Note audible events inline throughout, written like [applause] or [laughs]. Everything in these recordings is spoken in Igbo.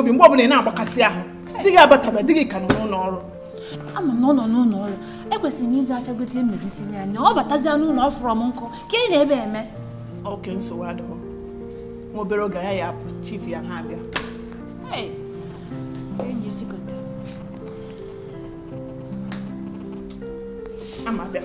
obi mgbe ọbụla ị na-agbakasị ahụ di gị abataba di gị ka nọ n'ụlọ ọrụ ama na ọ nọ n'ụlọ ọrụ ekwesịrị m iji afịa gote e medisi ya anya ọ batazie n'ụlọ ọ m nkụ ka ị na-ebe eme oke nsogbu adịghị nwa obere oge ya ya apụ chief ya ha abịa e ama bịa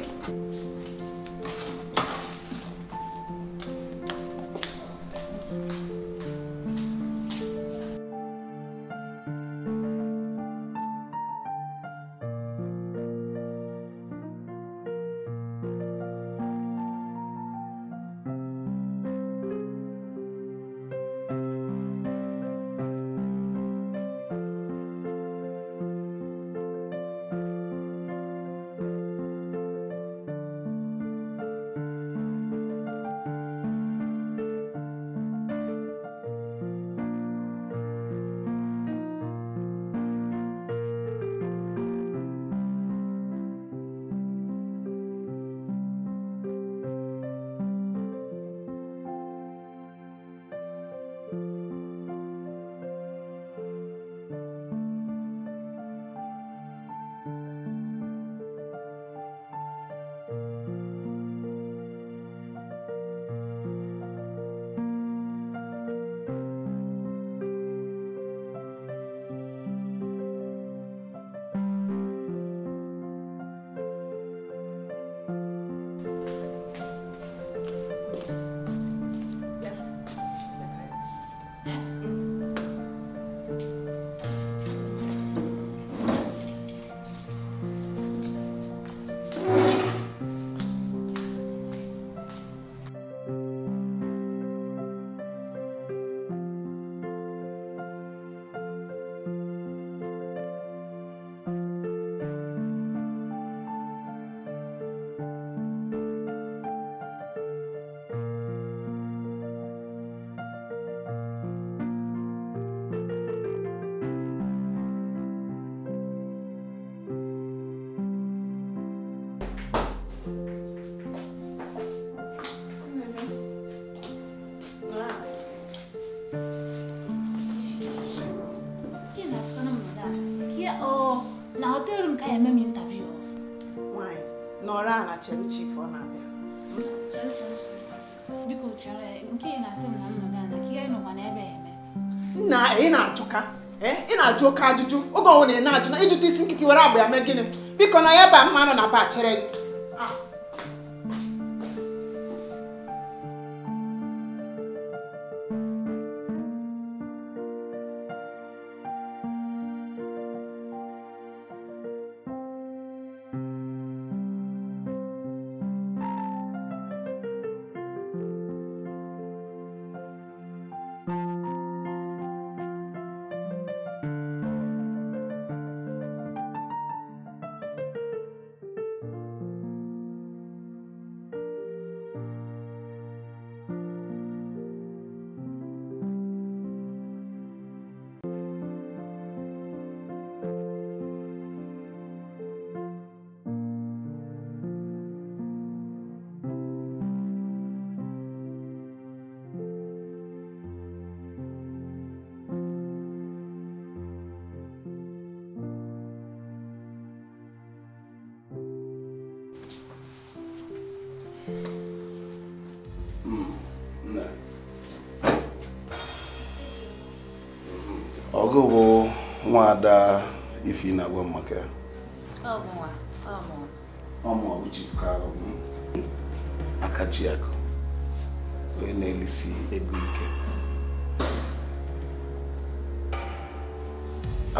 na-ajụ oke ajụjụ oge ọnwụ na ena ajụ na ịjụta isi nkịtị were agba ya mee gịnị biko na ya ebe a mma nọ na bachịrị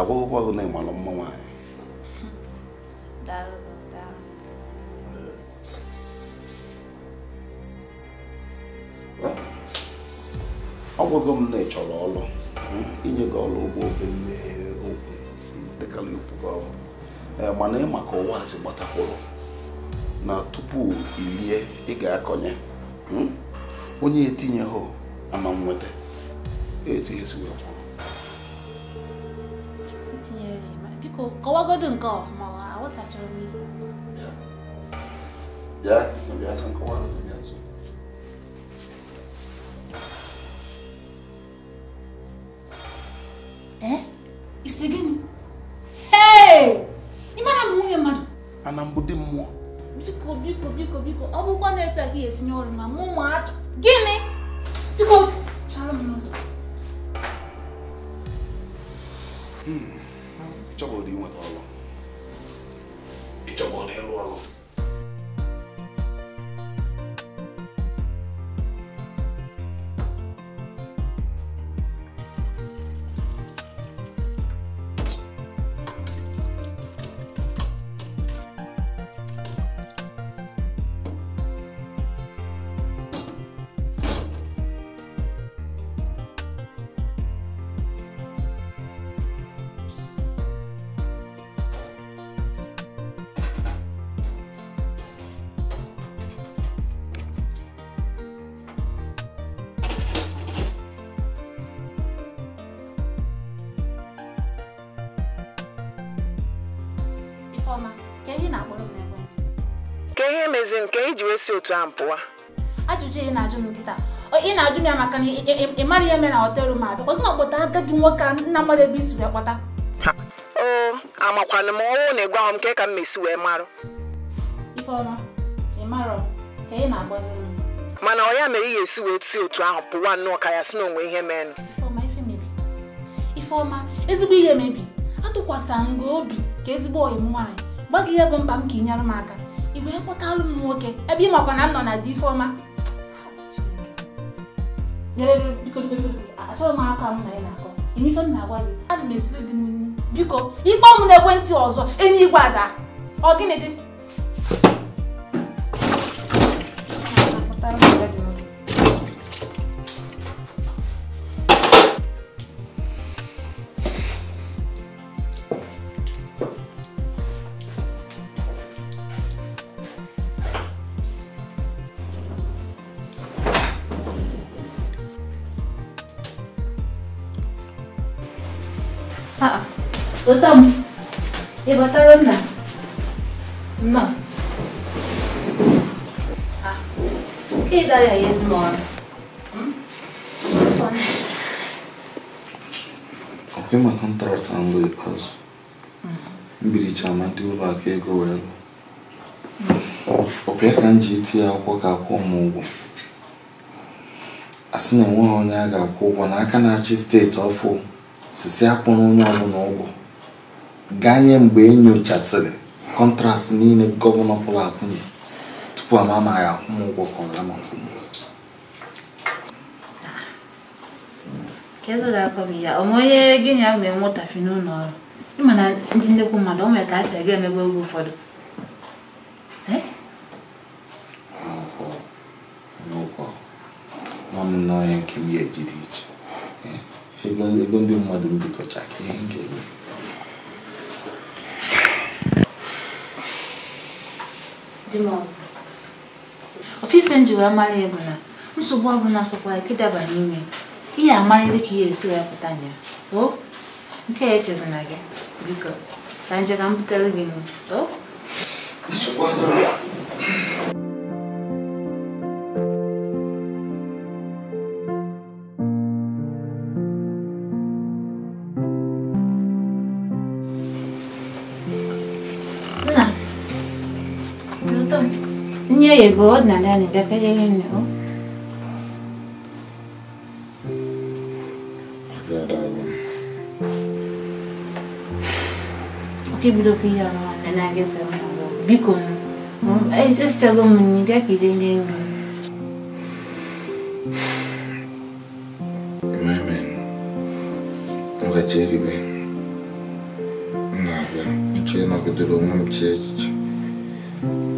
agwụgwọ gị na mma nwaanyị ọ gwụgo m na ị ọlụ ọrụ hmm? inye gị ọrụ ụgbọ obere okwu dịkara ikwu ọrụ eh, mana ị maka ụwa azị na tupu ilie ị ga-akọnye hmm? onye etinyeghị ama nweta etu kọwagodu nke ọfụma aghọtachara m ihe isi gịnị m nwunye mmadụ ana mbụ dị mmụọ biko biko biko biko ọ bụkwa na-eteghị esinye ọrụ ma mụ ma gịnị a m ajụjụ ị na-ajụ m nkịta ị na-ajụ m ya maka na ị mara ihe mere na họtelụ ma abịa ọdụ na agadi nwoke a nna mara ebe isi wee kpọta oo amakwana m ọnwụ na ịgwa m nke ka m mesi wee marụ ka ị na mana ọ ya mere ị ga-esi wee tụsi otu ahụ pụwa nnọọ ka ya si na onwe ihe meenụ ifeọma ezigbo ihe mebi atụkwasa nga obi ka ezigbo m nwaanyị gbaghị ihe bụ mkpa m ka ị nyere m aka wee kpọtalụ m nwoke ebe ị makwa na m nọ na di ifeọma achọghị m aka m na ị na-akọ ife m na-agwa gị ana na esiri di m nri biko ịkpọ na n'ekwentị ọzọ enyi igwe ada ọ gịnị dị Lụta m, ị batara nna? Nna. Ka ị dara ya ezinọrụ. Ọkwa ịma kọntraktị mbụ ikpeazụ. Mbiricha ma ndị ụlọ akụ ego wee lụ. Ọbịa ka m ji iti ya akwụkwọ ka akwụ ụmụ ụgwọ. a sị na ha onye a ga-akwụ ụgwọ n'aka na-achị steeti ọfụ sisi na onye ụgwọ ganye mgbe enyochasịrị kọntrast niile gọvanọ pụrụ akwụnye tupu ama ama ya akwụmụgwọ kọrọ ama onye na ya na-enwe ụtafi n'ụlọ ọrụ na mmadụ o ka a emegbu oge ụfọdụ nke ya ejiri iche ego ndị mmadụ dima ọ ofufe nji w e mara ịbụla nsogbu ọbụla s o k a k i d a b a n'ime ihe amarị d ị k ihe esi wee pụta na ya o nke a e c h e s i n a gị biko ka nje ka m butere gị nụ o Свободно, да, не така да Eu много. Kibdo piya no na na ge sa na go. Bikon. Ai just chalo mun ni ga ki je le. Eu Ga cheri be. Na ga. Che na ga de lo mun che.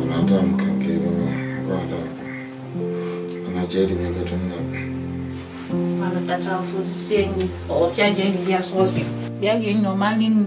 Ana dam kan ke ba. kubala ko angatsheli bekethu mnabo mana tata ufuzisiyeni osiyanjengeyasoze oh, yangeni nomalini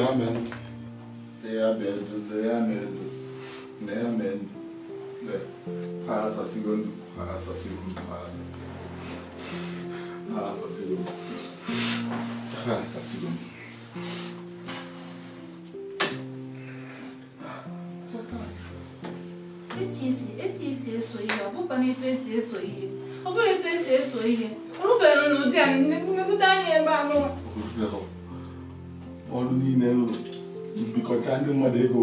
amen. They are bed, they are made, they are made. The pass a second, pass a second, pass a second. Pass a second. Pass a second. Eti isi, eti isi eso ihe, ọ bụkwa na etu esi eso ihe. Ọ bụrụ etu esi eso não ọ rụbeghị n'ụdị não nnekwu não ebe a ọrụ niile nrụ mbikọcha ndị mmadụ ego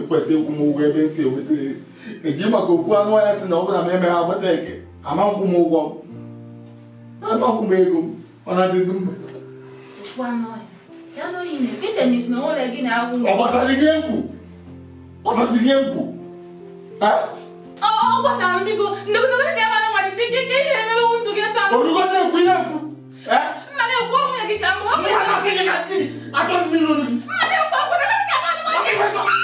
ekwesị ịkwụ m ụgwọ ebe m si enweta eji maka ofu anụ ọhịa si na ọ bụla m ha agbata eke ama m ụgwọ m ego ọ na-adịzi mba ọ gbasara ihe mkpu gbasara ihe orugo na-ekwu ihe ficar louco. Não vai conseguir aqui, a todo minuto. Mas eu vou, não vai ficar maluco.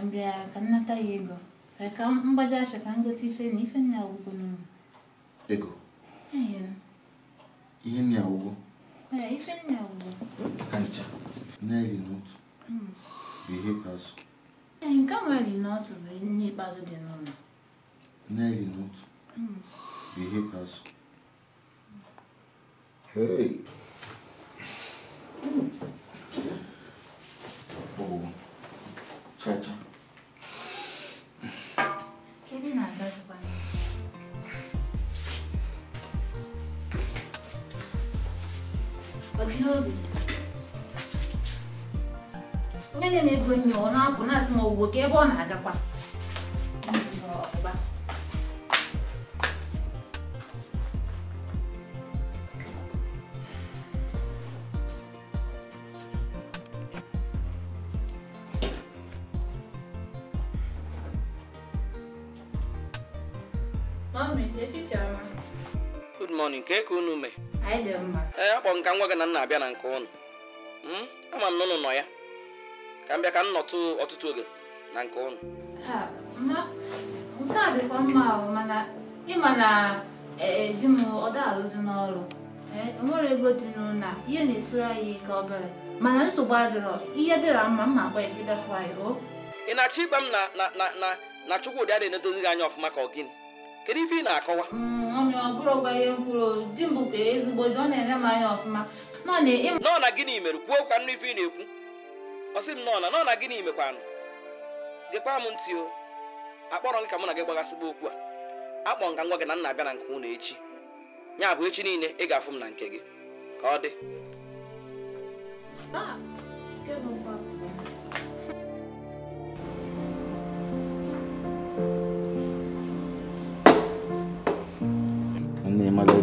m ka nnata ya ego ka mgbaja achọ acha ka m ife na ife nna awụgo n'ụlọ ego ihe nna awụgo ife nna awụgo ka ncha naịrị n'otu hmm. bụ ihe ikpeazụ nke nwere n'otu bụ ihe ikpeazụ dị n'ụlọ naịrị n'otu hmm. bụ ihe ikpeazụ asụ. n'obi onye na na-ego nye ọ na-apụ na-asị ma owuwe ka ebe ọ na-agakwa Good morning, ka unu mee? anyị dị mma ee akpọ m ka m gị na nna na-abịa na nke ụnụ hmm? ama m nụnụ nọ ya ka m bịa ka m nọtụ ọtụtụ oge na nke ụnụ nke a dịkwa mma ahụ mana ịma na e, e, di m ọ daalụzi n'ọrụ e, nwere ego dị n'ụlọ ihe na-esoro anyị ike obere mana nsogbu adịrọ ihe dịra mma m na agba ya gị bịafụ anyị o ị na-achọ ịgba m na na na na Chukwudi adịghị enedozi gị anya ọfụma ka ọ gịnị kedu ife ị na-akọwa nọ na gịnị mere kwuo kwa nụ ife ị na-ekwu ọ sị m nọ na nọ na gịnị mekwanụ gekwa m ntị o akpọrọ m ka mụ na gị gbagasịba okwu a akpọ nka ngwa gị na nna abịa na nke unu echi ya bụ echi niile ị ga-afụ m na nke gị ka ọ dị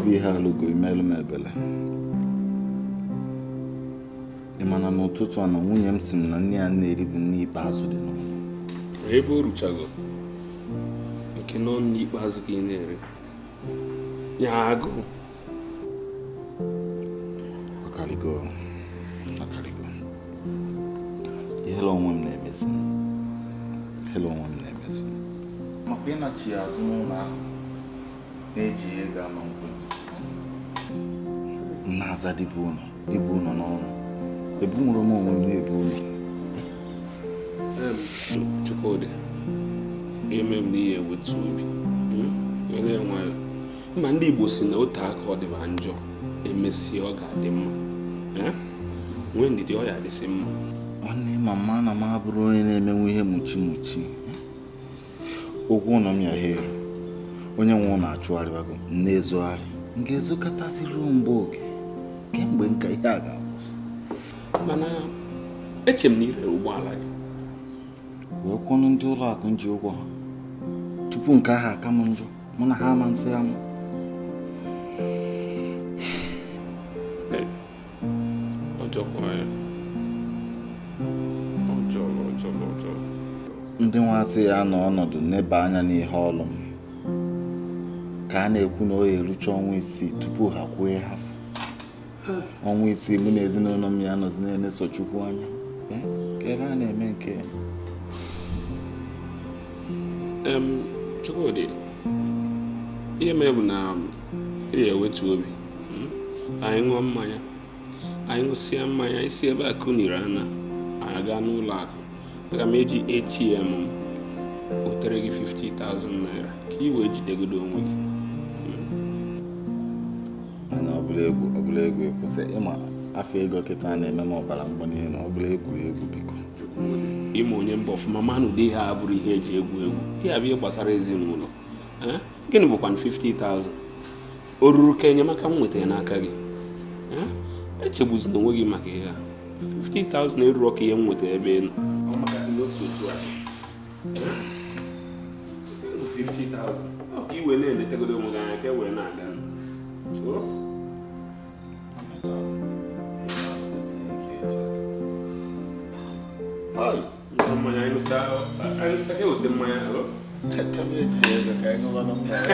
bụ ihe alụgo imelụ m ebele ị mana n'ụtụtụ a na nwunye m si m na nne ya na-eribu nne ikpeazụ dị n'ụlọ ebe o ruchago nke nọ ikpeazụ ka ị na-ere ya agụụ onwe m onwe m na-emezi n'aza dịbe unu dịbe unu n'ọrụ ebunwere m onwe m na-ebu unu Chukwudi ime m n'ihe wetu obi hmm? were nwayọ mma ndị Igbo si na otu aka ọ dịba njọ emesie ọ ga-adị mma eh? nwee ndidi ọ ya adịsị mma nwanne mama na m abụrụ onye na-emenwe ihe muchi muchi okwu ụlọ m ya ha onye nwe ụlọ achụgharịbago m na-ezogharị m ga-ezokọtaziri mgbe oge kemgbe nka ihe a ga-akwụsị mana eche m na ire ụgbọala gị wee kwụnụ ndị ụlọ akụ ji ụgwọ ha tupu nke ahụ aka m njọ mụ na ha ama nsị ama ndị nwaasị ya nọ ọnọdụ n'ebe anya n'ihe ọlụ m ka a na-ekwu na o erucha ọnwa isii tupu ha kwue ha ọnwa isii mụ na ezinụlọ m ya anọzi na-eleso chukwu anya eh, ka a na-eme nke Chukwudi ihe mere bụ na um, ị ga-ewetu obi hmm? anyị ṅụọ mmanya anyị ṅụsịa mmanya isi ebe a kụniri ana anyị gaa n'ụlọ akụ aga m eji ATM m wetere gị 50,000 naira ka ị wee jidegodo onwe gị hmm? ọbụla egwu ekwụsị ịma afọ ego kịta na-eme m ọbara mgbali elu ọbụla egwuregwu biko ịma onye mba ọfụma manụ dị ihe abụrụ ihe eji egwu egwu ya bụ ihe gbasara ezinụlọ gịnị bụkwa 50,000 o ruru ka enyemaka m nwetara n'aka gị echegbuzina onwe gị maka ihe a 50,000 eruru ka ihe m nwetara ebe ị nọ iwe na-eletagodo onwe gị anya ka e wee na-aga Amanhã não sai. Aí não sai que eu kell amanhã, alô? Eu também tenho, eu quero ir no Guanamara.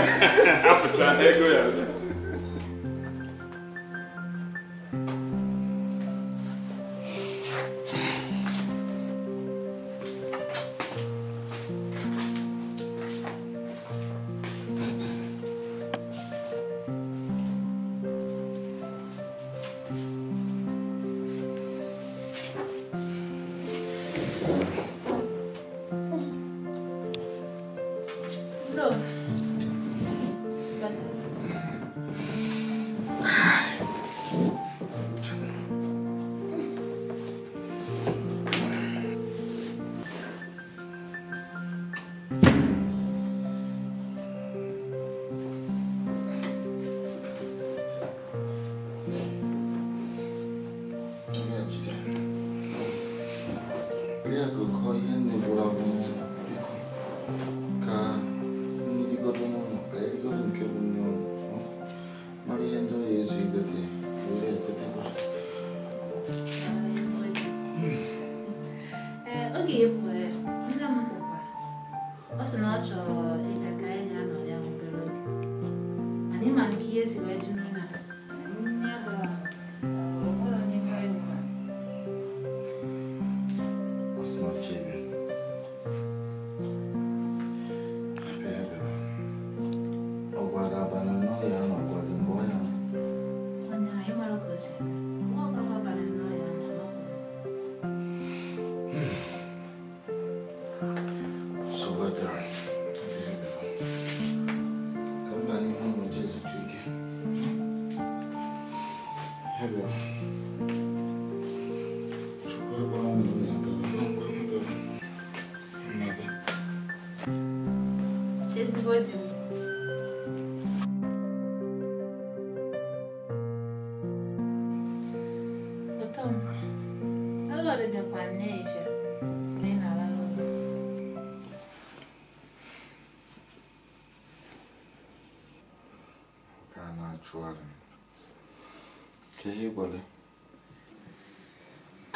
ka ihe gwara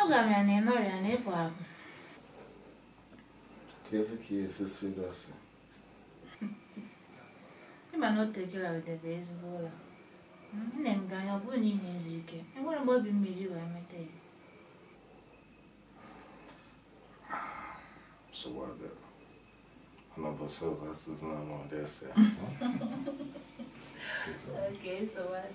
a ya na ị nọrịa na ịpụ apụ ka esi ka ihe esisi gị ịma na o tekela wedebe ezigbo ụlọ nne m ga anya ọ bụrụ na ị na-ezu ike enwere mgbe obi mma iji wee meta ya [laughs]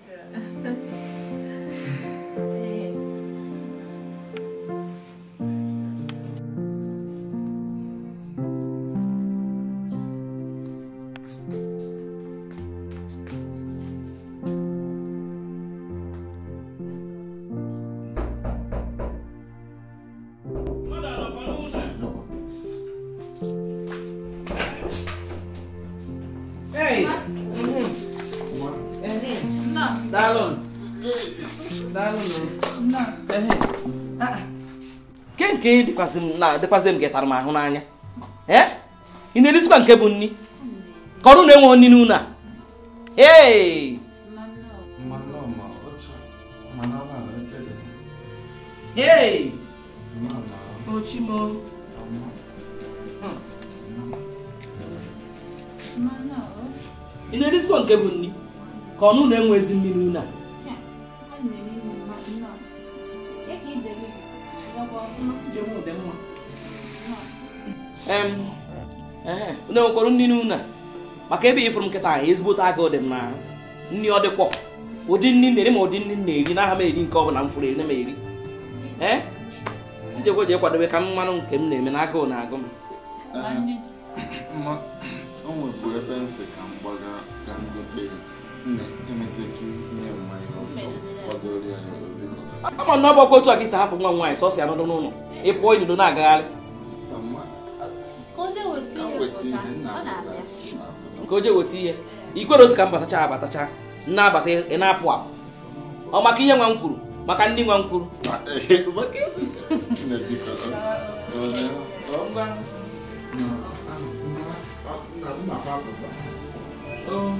nke dịkwazị m gị tara m ahụ n'anya eh? ị na-erezikwa nke bụ nni ka ọrụ na enwe nri n'ụlọ a ee Hey! Ochimo. Ị na-erisikwa nke bụ nri ka ọnụ na-enwe ezi mmiri n'ụlọ a em, có đi cái tay, tay của nne nwekwara nri n'ụlọ maka ebe ifụrụ đi, nkịta anyị ezigbote agụ dị m na nri ọ dịkwọ ụdị nri na-eri ma ụdị nri na-eri n'aha m eri nke ọ bụla m fụrụ eri na m eri sijekwa ji kwadobe ka mmanụ nke m na-eme na agụụ na-agụ m ebe ama na ọgbakọ otu a ka isi hapụ nwa nwaanyị sọsọ ya n'ụlọ n'ụlọ ịpụọ inudo na-agagharị ka o je weta ihe ikwere osi ka m batacha abatacha na-abata ị na-apụ apụ ọ maka ihe nwa m kwuru maka ndị nwa m kwuru Oh.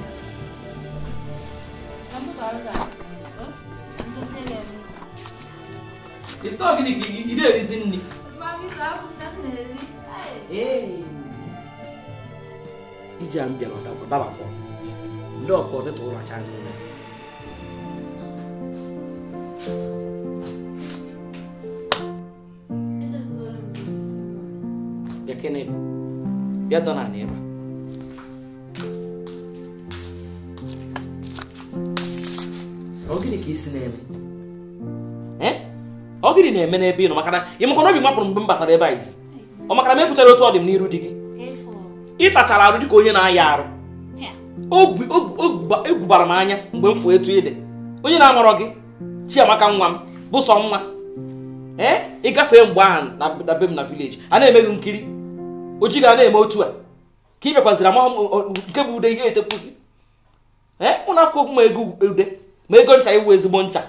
It's not gimmick. You didn't reason it. iji a bịara ọdabakọ ndị ọkọ ọtụtụ ụlọ acha n'ụlọ bịa kene bịa dọ na ebe a ọ gịnị ka isi na-eme ọ gịnị na-eme n'ebe ị nọ maka na ị makwa na obi mapụrụ mgbe m batara ebe anyị ọ maka na m ekwuchara otu ọ dị m n'iru di gị ịtachara arụ dịka onye na-aya arụ egwubara m anya mgbe m fụ etu ị onye na-amarọ gị chiamaka nwa m bụ sọ nwa ee eh, ịgafee mgbe ahụ na be m na vileji a na-eme gị nkiri o ji ga na-eme otu a ka ị bịakwaziri amahụ nke bụ ude ihe etekwuzi ee eh, ụnụ afọ okwu ma ego ude ma ego ncha iwu ezigbo ncha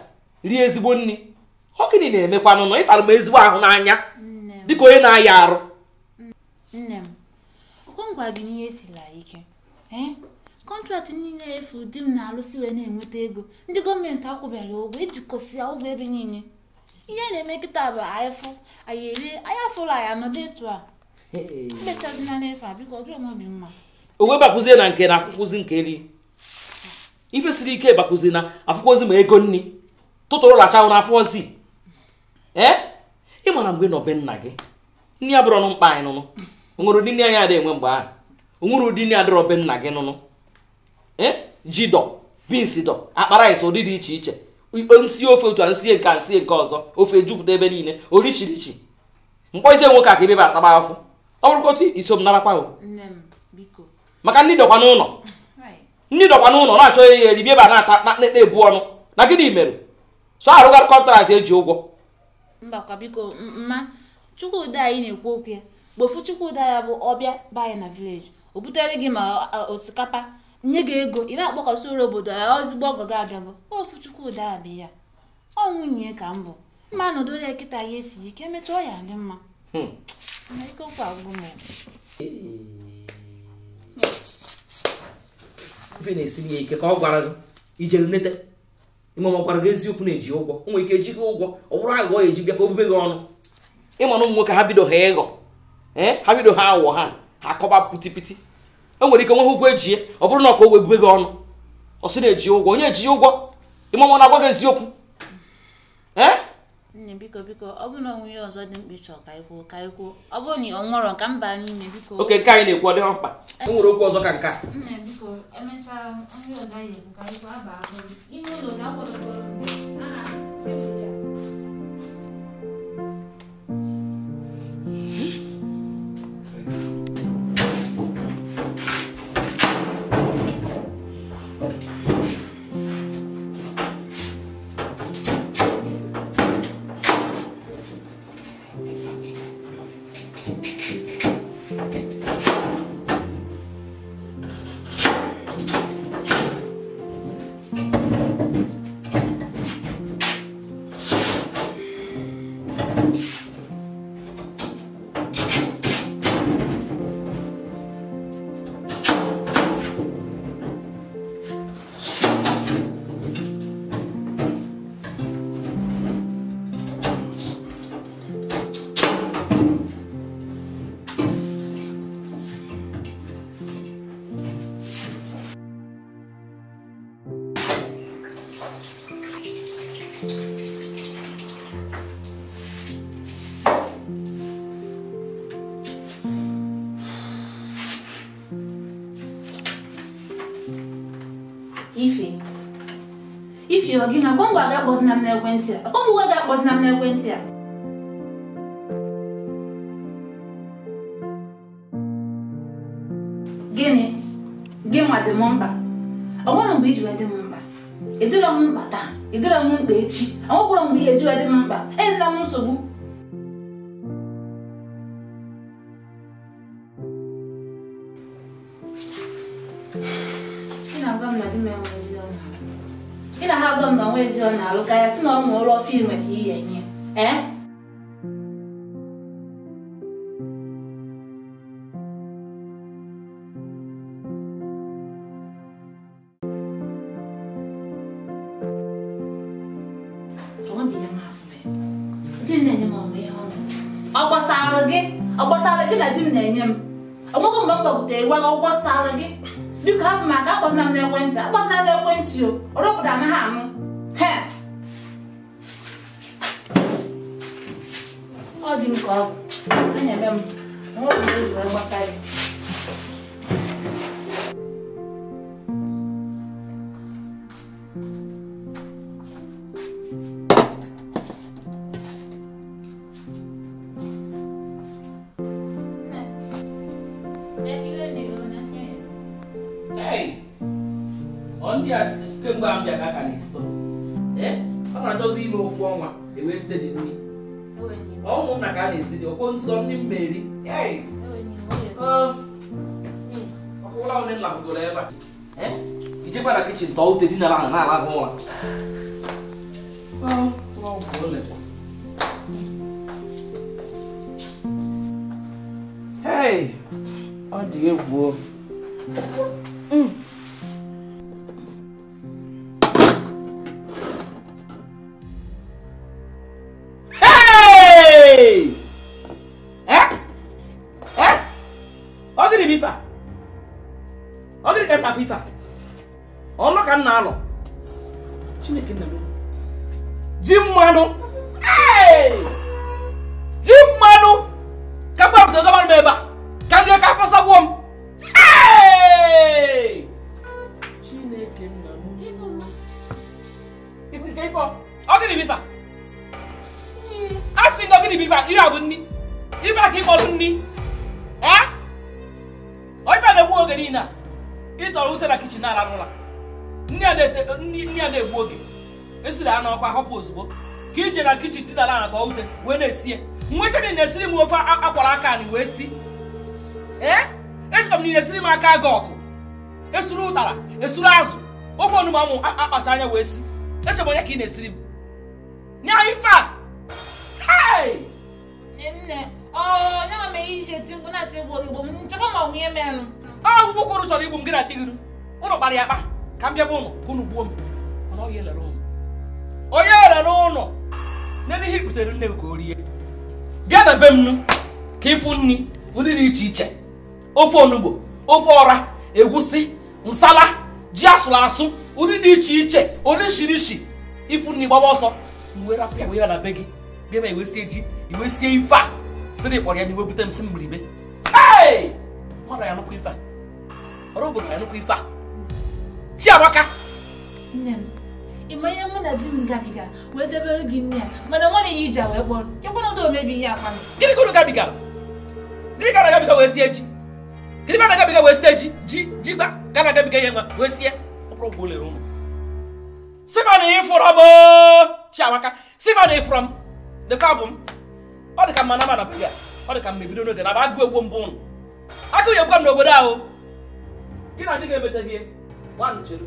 rie ezigbo nri ọ gịnị na-emekwanụ nọ ịtara m ezigbo ahụ n'anya dịka onye na-aya arụ nne m ọkwangwa gị n'ihe esila ike kọntraktị eh? niile efu di m na-arụsi wee na-enweta ego ndị gọọmenti akwụbara ụgwọ ejikọsịa ụgwọ ebe niile ihe na-eme nkịta bụ anyịfụ anyị eri anyị afụrụ anyị anọdụ etu a mkpesazina n'efe a biko ọdụrụ m obi mma onwe bakụzie na nke na afụkwụzi nke eri ife ike bakụzi na afụkwụzi ma ego nri tụtụrụ lachawụ na afọ ozi ee eh? ị mara mgbe nọbe nna gị nne ya bụrụ ọnụ mkpa anyị nụnụ onwere ụdị nne anyị adịghị enwe mgbe ahụ onwere ụdị nne adịrọ be nna gị nụnụ ee eh? jidọ bins dọ akpara ịsị ụdị dị iche iche nsi ofe otu a nsie nke a nsie nke ọzọ ofe jupụta ebe niile orichirichi mkpọzie nwoke a ka ebebe ataba afọ ọ bụrụkwa otu iso m narakwa maka ndị dọkwa n'ụlọ ndị dọkwa n'ụlọ na-achọ ya eri bieba na-ata na-ebu ọnụ na gịnị mere so arụgharị kọntraktị eji ụgwọ mbakwa biko mma chukwude anyị na-ekwu okwu ya gbofu chukwuda ya bụ ọbịa be anyị na vileji o butere gị ma osikapa nye gị ego ị na-akpọkọsị ụlọ obodo ya ozigbo ọgọ gị abịago ofu ya abịa ya ọ nwunye ka m bụ mma nọdụrụ ya kịta ya esi ike metụọ ya dị mma hmm. ife na ya ike ka ọ gwara gị ijere ime ọ gwara gị eziokwu na-eji ụgwọ o nwere ike eji gị ụgwọ ọ bụrụ aghụghọ ya eji bịa ka obube gị ọnụ ịma na ụmụ nwoke ha bido ha ịghọ ha bido ha aghụghọ ha ha kọba pitipiti e nwere ike nwe ha ụgwọ ejie ọ bụrụ na ọka o bube gị ọnụ ọ na-eji ụgwọ onye eji ụgwọ ịmama na-agwa gị eziokwu ee nne biko biko ọ bụrụ na onwunye ọzọ dị mkpa ịchọ ka anyị ka anyị ọ bụrụ na ọ nwụrọ ka mba n'ime biko oke nke anyị na-ekwu ọ dịghị mkpa eh. o nwere okwu ọzọ ka nke a nne biko emechaa onye ọzọ anyị ka anyị kwuo abaa ihe ụlọ ga-akwadokọrọ a na-ekwu ọ gị na akwa ngwa ga-akpọzina m n'ekwentị a akwa ngwa ga-akpọzina m n'ekwentị a gịnị gị nwa dị m mkpa ọ nwere mgbe iji wee m mkpa ịdịrọ e m mkpa taa ịdịrọ e m mkpa echi ọ nwekwara mgbe ihe eji wee m mkpa ezila m nsogbu na-alụ ka ya sị na ọ ma ụlọ ọfụ na ihe nye ee gị na di m na-enye m onwego mgbe m gbabutere gwa ọgwụgwọ sara gị biko hapụ m akpọtụna m akpọtụna m o anaghị anụ He. Ọ dị nke ọ bụ, olha o m, ọ bụ ezu gbasa ya. ń sọ ndị mmeri ọkwụla onye nna bugoro ebe a ijekwara kichin tọọ ute dinara na na-alahụ ụra Hey, ọ dị egwu fifa ọ dịrị ka m na-afụ ka nna alụ chineke nna m ji mmanụ ọkwa ahọpụ ozugbo ka i jere na kichin wee na esi ute wee na-esie nwechadị na-esiri m ofe akwara aka anyị wee si ee echeta m na esiri m aka gị ọkụ esuru ụtara esuru azụ ofe onugbu amụ akpacha anya wee si eche m onye ka ị na-esiri m nye anyị ọgwụgwụ kwụrụ chọrọ igbu m gị na di gị ụlọ kpara ya akpa ka m bịa ụlọ ka gbuo m n'ebe ihe butere nne m ka o rie bịa na be m ka ịfụ nri ụdị dị iche iche ofe onugbo ofe ọra egwusi nsala ji asụrụ asụ ụdị dị iche iche orishirishi ịfụ nri gbaba ọsọ wee rapụ ya wee na be gị bịa ma iwesie ji iwesie ife a sịrị kpọrọ ya na iwe bute m si mgbiribe mmadụ ya nụkwa ife a ọrụ obodo ya nụkwa ife a chiamaka nne ịma ihe mụ na di m gabiga wee debere gị nne ya mana nwanne ya iji wee kpọrọ kekwana ụdọ omebi ihe akpa gịnị ka unu gabiga gịnị ka na gabiga wee sie ji gịnị ka na gabiga wee sie ji ji ji gba ga na gabiga ihe nwa wee sie ọkpụrụ lere ụmụ sifan ịfụrọ m chiamaka sifan ịfụrọ m dịka abụ m ọ dị ka mma na mana ya, ọ dị ka mma ebido n'oge na agụ egwu mbụ ụnụ agụ ya egwu m n'obodo ahụ gị na adịghị ga-emeta gị gbanụ cheru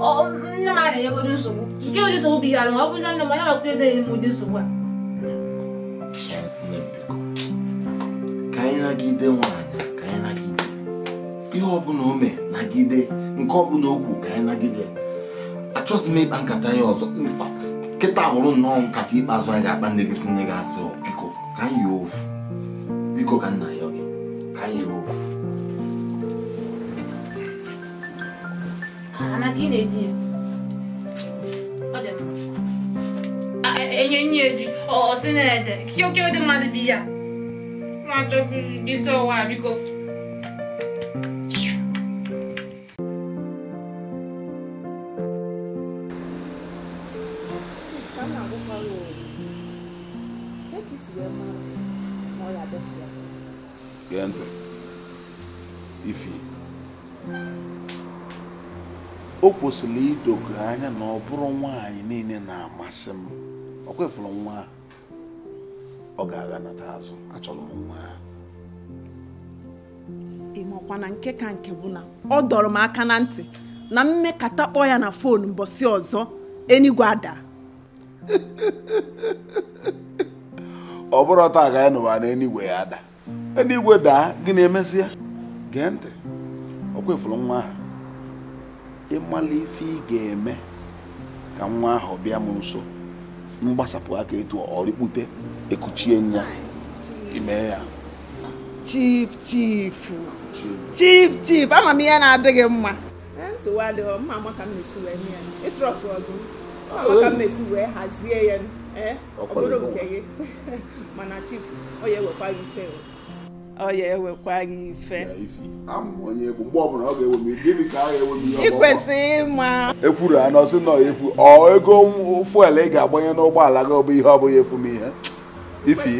nne a na nsogbu nsogbu ọ bụzi nne m onye ọkụ m nsogbu a ihe ọbụla ome nagide nke ọbụla okwu ka anyị nagide m ya ọzọ nkịta hụrụ nnọọ nkata ikpeazụ anyị ga-akpa nne gị si biko ka anyị biko ka nna ka ị na-eji e, e, enye nye eji ọsị na-ede kiokedị mmadụ bi ya nwa chọbụ isi ọwa biko kwesịrị idogo anya na ọ bụrụ nwaanyị niile na-amasị m ọ kwefụrụ nwa ọ ga-aga nata azụ achọrọ m nwa ịmakwa nke ka nke bụ na ọ dọrọ m aka na ntị na mmekata kpọọ ya na fon mbọsị ọzọ enigwe ada ọ bụrụ taa ka anyị nụwa na enigwe ya ada enigwe daa gị na-emesịa gee ntị ọ kwefụrụ nwa ahụ ịmala ife ị ga-eme ka nwa ahụ bịa m nso mgbasapụ aka etu ọrịkpute ekuchie ya ime ya chief chief chief chief ama m ihe na-adịghị mma e, nsogbu adịghị mma amaka m na-esi wee nye ya ịtrọs ọzọ amaka m na-esi wee hazie ya ọ bụrụ nke gị [laughs] mana chief ọ ya ewekwa gị fere ọya ewekwa gị ife ikwesị ịma ekwuru ha nọsị nọ efu ọ ego fuel ị ga-agbanye n'ụgbọala gị ọ bụ ihe ọ bụghị efu m ihe ifi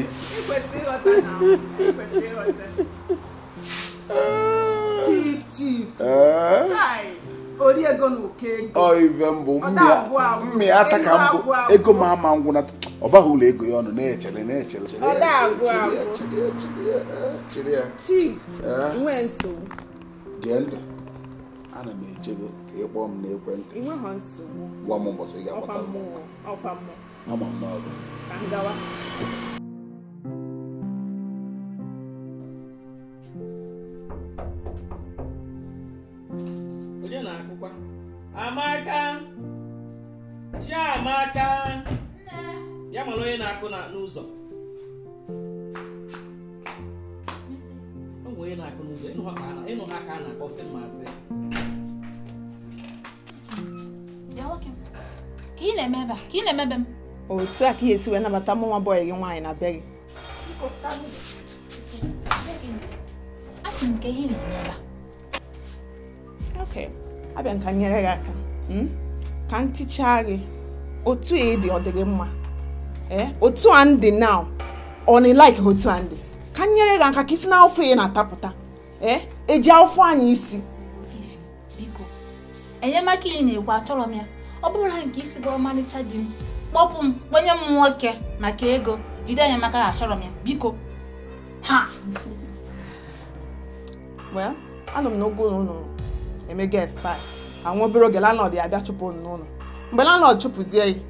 chief chief eh? ori ego na oke ego ọ ife mbụ mmịata ka mbụ ego m ama ngwụ na ọ baghị ụlọ ego ya ọnụ na-echere na-echere gee ya. ana m eche gị ka ị kpọọ m n'ekwentị gwa m ụbọchị ị ga-akpọta mma m ọ nwere onye na-akụ n'ụzọ ịnụ ha ka a na-akpọ sị mmasị ka ị na-eme ebe a ka ị na-emebe m otu a ka ihe esi wee nabata mụ nwa bọyị gị nwaanyị na be gị asị m ka ihe na-eme ebe a ok abịa m ka nyere gị aka hmm? ka m tichaa otu a dị ọ dịghị mma Eh? otu a ndị now ọ na otu a ndị ka m nyere gị aka ka isi na afọ ya na-atapụta ee eh? eji afọ anyị isi biko enyemaka ị na-ekwu achọrọ m ya ọ bụrụ na nke isi bụ ọmarịcha di m kpọpụ m kpenye m nwoke maka ego jide enyemaka ha achọrọ m ya biko ha well anọ m n'ogo ụlọ emega espai anwa obere oge lanọd ya abịa chụpụ n'ụlọ mgbe lanọd chụpụzie ya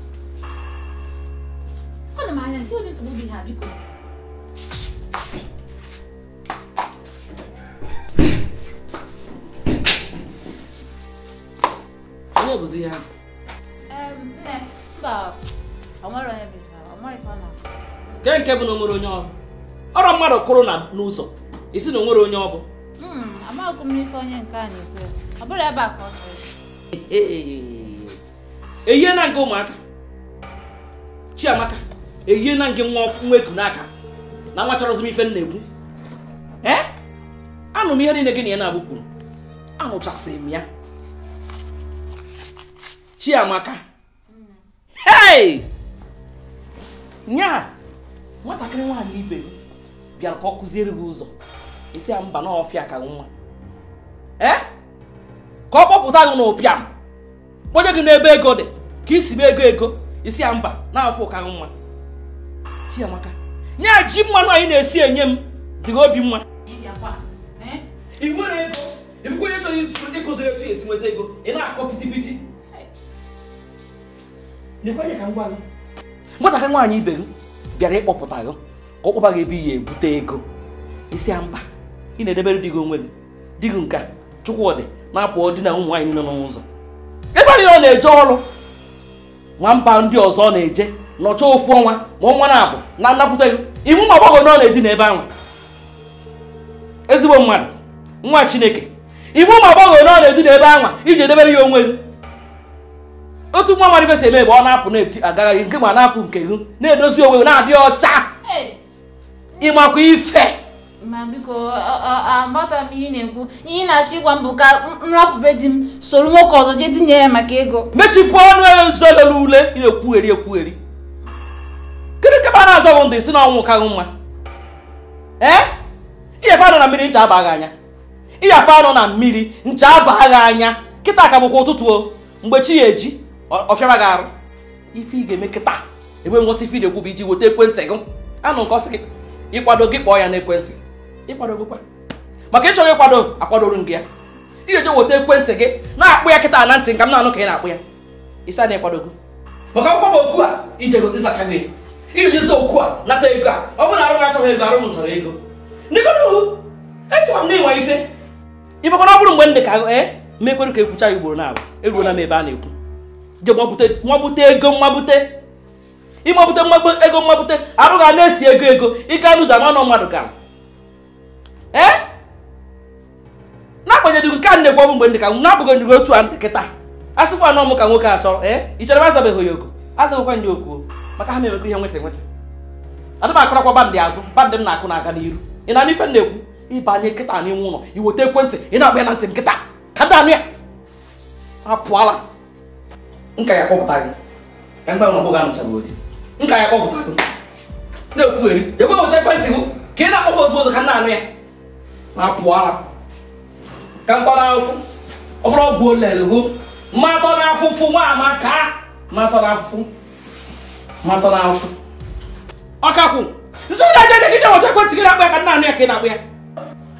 ọ na m anya nke onye nsogbu dị ha biko onye bụzi ya nke nke bụ na o nwere onye ọrụ ọrụ mmadụ kụrụ n'ụzọ isi na o nwere onye ọ bụ eyiena nke ụmụaka chiamaka ehihie na nke nwa eku n'aka na nwa chọrọzi m ife na-ekwu anụ m ihe niile gị na ya na-abụ kwuru anụchasịrị m ya Chiamaka hey nya nwatakịrị nwaanyị ibe m bịara ka ọ kụziere gị ụzọ esi ya mba n'ọfịa ka nwa ka ọ kpọpụta gị n'ụpịa m kpọnye gị n'ebe ego dị ka isi m ego ego isi ya mba na-afụ ụka nwa Chiamaka nye ji mmanụ anyị na-esi enye m dị obi mma ifuko eh? onye chọrọ ndị ego ị na-akọ pitipiti nwaanyị ibe gị bịara ịkpọpụta gị ka ọ kpọba gị ebe iyi ebute ego isi ya mba ị na-edebere di gị onwe gị di gị nke Chukwudị na-apụ di na ụmụ nwaanyị nọ n'ụzọ ebe ọ na-eje ọrụ nwamba ndị ọzọ na-eje nọcha ofu ọnwa ma ọnwa na-abụ na nnakwute gị iwu ma na ọ na-edina ahụ ezigbo mmadụ nwa chineke iwu ma ọgbọghọ na ọ na-edina ebe ahụ iji edebere ya onwe gị otu nwa marifesi eme ebe ọ na-apụ na-agagharị nke ma na-apụ nke ihu na-edozi onwe na-adị ọcha ịmakwa ife ma biko agbata m ihe na-ekwu ihe ị na-achọ ịgwa m bụ ka nrapụbe di m soro nwoke ọzọ jee dinye ya maka ego mechipụ ọnụ ya nzolele ule na-ekwugheri ekwugheri kịrị kebe a na-azọ bụ ndụ si na ọnwụ kaghị nwa ee iyefe na mmiri ncha abaghị anya iyefe anọ na mmiri ncha abaghị anya kịta ka bụkwa ụtụtụ mgbe chi ya eji ọfịara gị arụ ife ị ga-eme kịta enwe nghọta ife ị na-ekwu bụ iji weta ekwentị gị anụ nke ọsị gị ịkwado gị kpọọ ya n'ekwentị ịkwadogokwa maka ị chọrọ ịkwado akwadoru m gị ya ị ga-eje weta ekwentị gị na-akpụ ya kịta na ntị nka m anụ ka ị na-akpụ ya ịsa na ịkwadogo maka akwụkwọ okwu a ijego ịzacha gị ijizi okwu a nata ego a ọ bụ na arụ achọghị ego arụ m chọrọ ego e m na ịnwa ife ọ bụrụ mgbe m dị ka ee eh, ma ka ekwucha ya ugboro e na ebe a na-ekwu je nwabute ego nwabute ịmabute ego arụ na-esi ego ego ike anụzi ama mmadụ gara Eh? na-agbanyeghị nke a na-ekwu ọbụ mgbe ndị ka na-abụghị ndị otu a ndị kịta asịkwa anọ m ka nwoke achọ ee eh? ị chọrọ azabeghị ya oku azaghịkwa ndị oku maka ha na-emekwa ihe nweta nweta adị m akụrakwa bandị azụ bandị m na-akụ na-aga n'iru ị na-anụ ife na-ekwu ịbanye nkịta n'ime ụlọ iweta ekwentị ị na-akpa ya na ntị nkịta ka anụ ya apụọla nka nka ya kpọpụta gị na ekwentị ị na-akpọkwa ozugbo na-apụ ara ka mkpọnafụ ọfụrụ ọgwụ olelgo mmatọ n'afụfụ nwa amaka mmatọ n'afụfụ mmatọ n'afụfụ ọkakwụ nso na aja degide ọjọ ekwentị gị na-akpa ya ka nna anụ ya ka ị na-akpa ya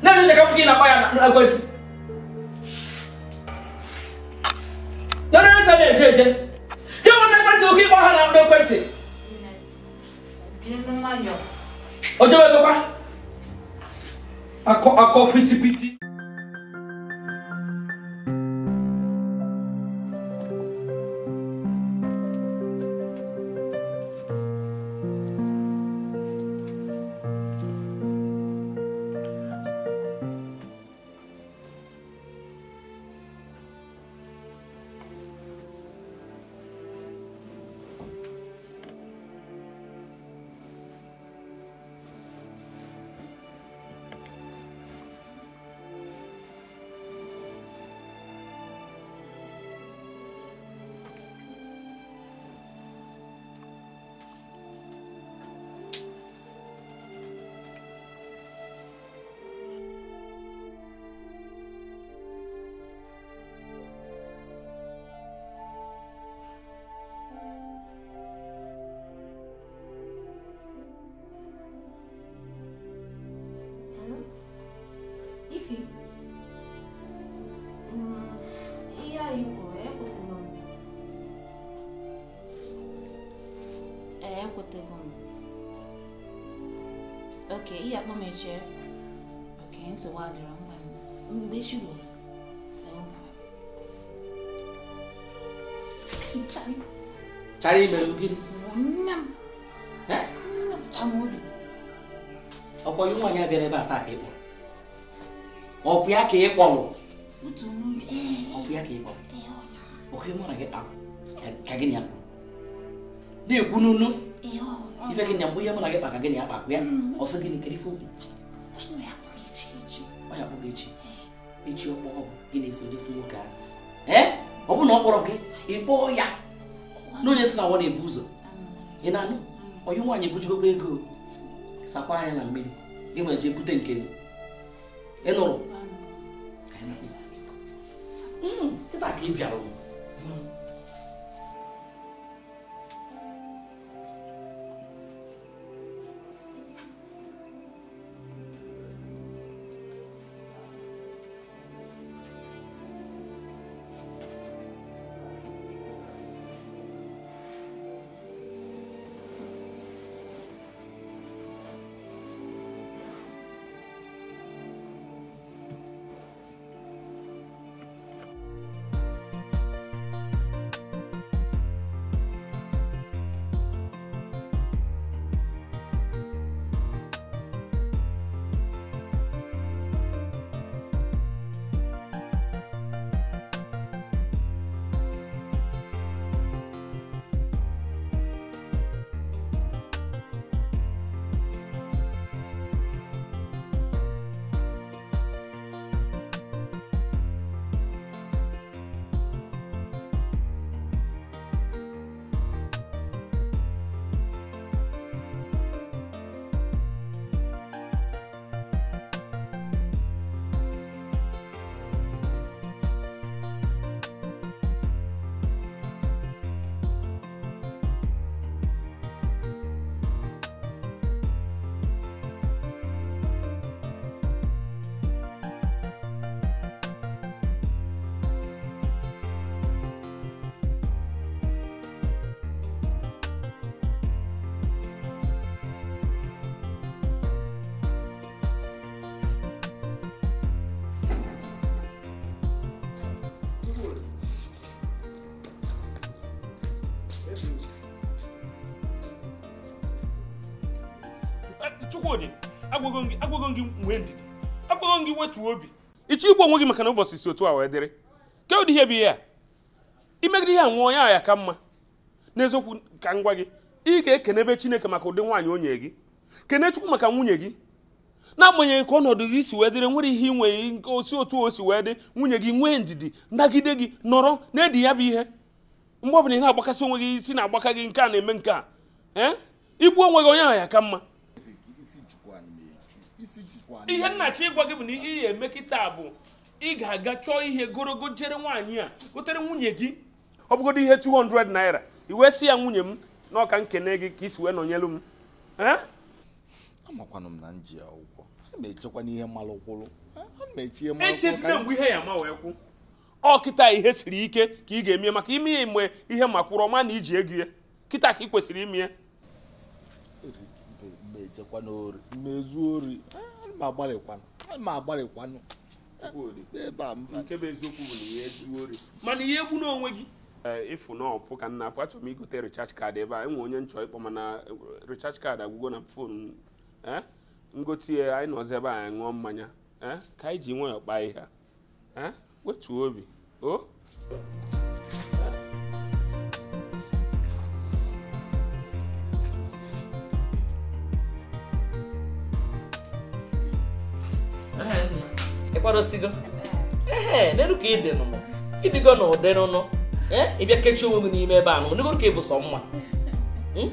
na-enye ndeka fụ gị na-akpa ya na ekwentị dọrọ na-eje eje ekwentị oke ịkpọ ha na ekwentị I call, a copo bụ echi echi ọkpọọ gị na-eso nwoke ahụ ee ọ bụrụ na ọ gị ị kpọọ ya n'onye si na nwa na-ebu ụzọ ị na-anụ onye nwaanyị ebujugobe ego sakwa anya na mmiri gị nwere jee bute nke ị nụrụ hmm, ka ị bịara ịchọ igbu onwe gị maka na ụbọchị si otu a wee dịrị ụdị ihe bụ ihe a imegide a nwụọ ya ya ka mma n'eziokwu ka m gwa gị ị ga-ekenebe chineke maka ụdị nwaanyị onye gị kene chukwu maka nwunye gị n'agbanyeghị ka ọnọdụ gị si wee dịrị nwere ihe ị nke osi otu o si wee dị nwunye gị nwee ndidi nagide gị nọrọ na-edi ya bụ ihe mgbe ọbụla ị na-agbakasị onwe gị isi na-agbaka gị nke a na-eme nke a ee eh? igbu onwe gị onye ahụ ya ka mma ihe nnachi ịgwa gị bụ na ihe ya eme kịta bụ ị ga-aga chọọ ihe gorogo jere nwaanyị a gotere nwunye gị ọ bụgodo ihe 200 naira i wee ya nwunye m na ọka nkene gị ka isi wee nọnyelu m amakwanụ m na nji ya ụgwọ echekwa n'ihe mmalụ kwụrụ echezina mgbe ihe ya ma wee kwụ ọ kịta ihe siri ike ka ị ga-eme maka ime ya mgbe ihe makwụrụ ọma na iji ego ya kịta ka ị kwesịrị ime ya ori ma agbalịkwanụ ma agbalịkwanụ mana ihe egbu n'onwe gị ịfụ eh, na ọpụ ka nna apụ achọrọ m igote richarge card ebe a enwe onye nchọ ịkpọ mana eh, richarge kaadị agwụgo na fon ngote eh, ya anyị nọzi ebe anyị ṅụọ mmanya ka anyị ji nwayọọ kpaa ihe a wetuo obi o oh. ịkparosigo ee n'elu ka ị dị nụnụ ịdịgo na ụdị nụnụ ịbịa kechie onwe gị n'ime ebe a nụnụ n'egoro ka ị bụ sọ mma hmm?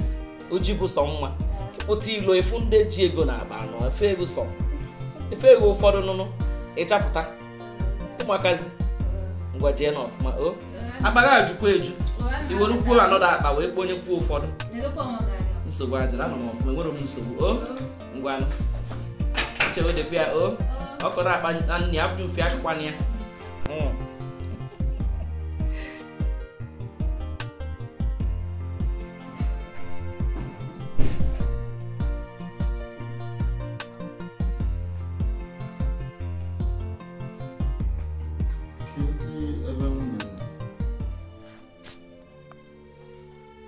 oji bụ sọ mma ịpụta ilo efu ndị ji ego na akpa anọ efe ego sọ efe ego ụfọdụ nụnụ ịchapụta ụmụakazi ngwa jee na ọfụma o akpa gị ajụkwa eju iwerukwuo anọdụ akpa wee kpọ onye kwuo ụfọdụ nsogbu adịrị anọ m ọfụma enwere m nsogbu o ngwanụ chewedekwa ya o ọkọrọ akpa nne afọ mfe akụkwanụ ya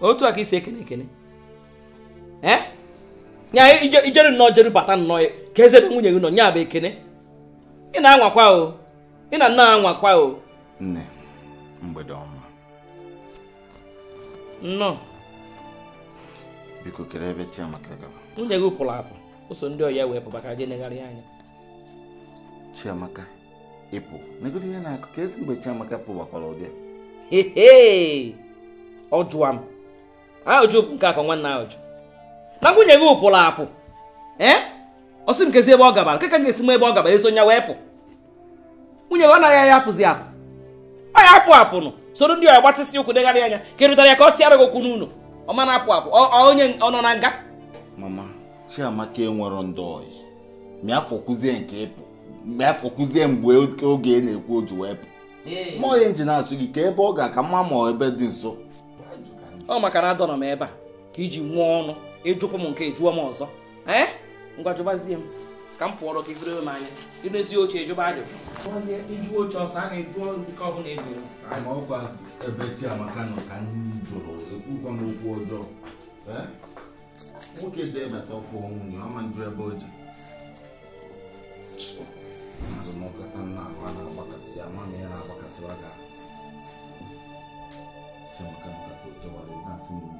otu a ka isi ekene ekene eh? ya ijeru nnọọ jeru bata nnọọ ka eze ebe nwunye gị nọ nya bụ ekene ị na-anwakwa o ị na nna anwakwa o nne mgbede ọma nnọọ biko kere ebe Chiamaka gaba nwunye gị pụrụ apụ ụso ndị ọya wee pụbaka na negharị anya Chiamaka ịpụ megide ihe na-akụ ka ezi mgbe Chiamaka pụbakwara ụdị ọ ọjụwa m ahụjụ nke akọ nwanne ahụjụ na nwunye gị pụrụ apụ eh? ọ sị m nkezi ebe ọ gabara m ga-esi m ebe ọ gabara eso nya wee pụ nwunye ọ naghị anya apụzi apụ ọ ya apụ apụnụ soro ndị ọya gbatasị ụkwụ degharị anya ka e rụtara ya ka ọ tịara gị okwu n'ụlọ ọ mana apụ apụ onye ọ nọ na nga mama chiamaka enwero ndị ọyị mịa fọkwuzie nke ịpụ mịa fọkwuzie mgbe oge na-ekwu oju wee pụ ma onye nji na-achụ gị ka ebe ọ ga-aka mma ma ebe dị nso ọ maka na adọnọ m ebe a ka iji nwụọ ọnụ ịjụpụ m nke jụọ m ọzọ ee ngwa m ka m pụọrọ gị bụrụ m anya ịrụzi oche jụba ajụjụ ịjụ oche ọsọ a na-eju nke ọbụla ọkwa ebe Chiamaka nọ ka jụrụ ekwukwa okwu ọjọọ nwoke ji ebata nwunye ọma ebe o ji azụmọkata nna ahụ a na-agbakasị ama ya na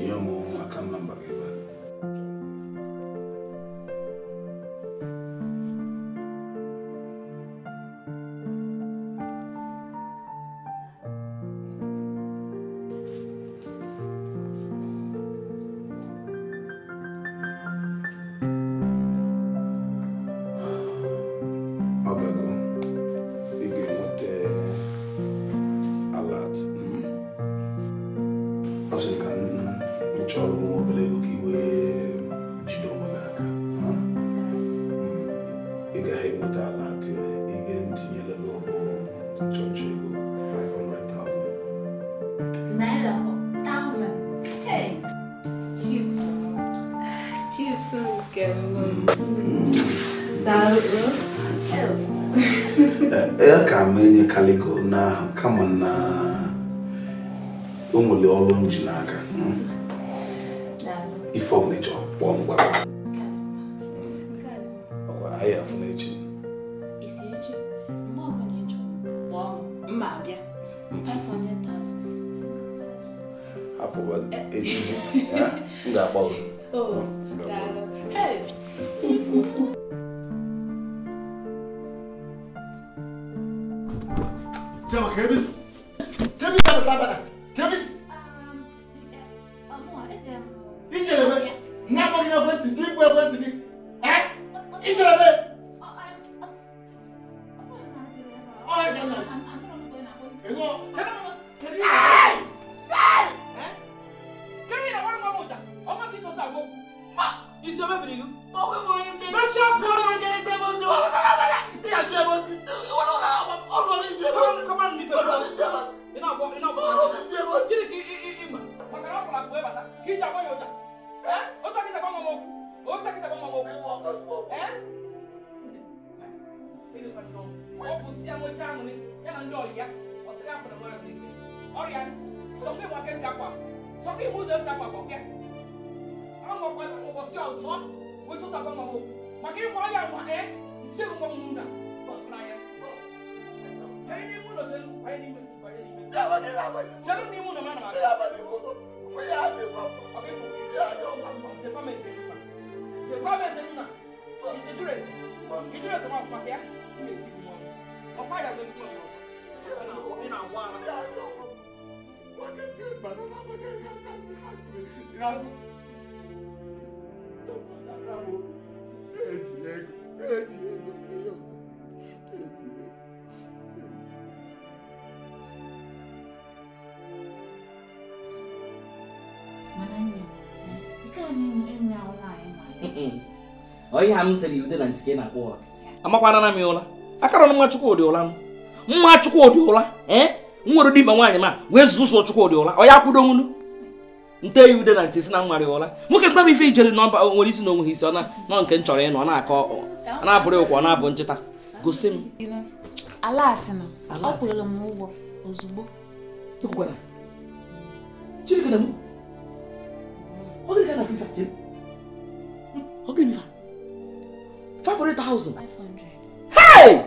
Yo mau akan membagi-bagi. Kwa mese nina. Ijure se. Ijure se mwa fapia. Mbe ti mwa. Ọ̀pá ìyàgbẹ́ mi mọ̀ yọ̀. Ina wá. Eji ego, eji ego, eji ego. ihe a m tere ude na ntike na-akpọ ụra amakwana na m ụra akara ọnụ nwa Chukwudị ụra m mma Chukwudị ụra ee m nwere dimma nwaanyị ma wee zụ ụzọ Chukwudị ụra ọ ya kwudo nwunu nte ya ude na ntị si na nwari ụra nwoke kpaba ife ijere na nwere isi na onweghị isi ọ nọ nke m chọrọ ịnọ na-akọ na-abụrụ ụkwụ ọ na-abụ ncheta gosi m Chirika na ọ Ogirika na fifa chiri. Ogirika na fifa. 500,000 hey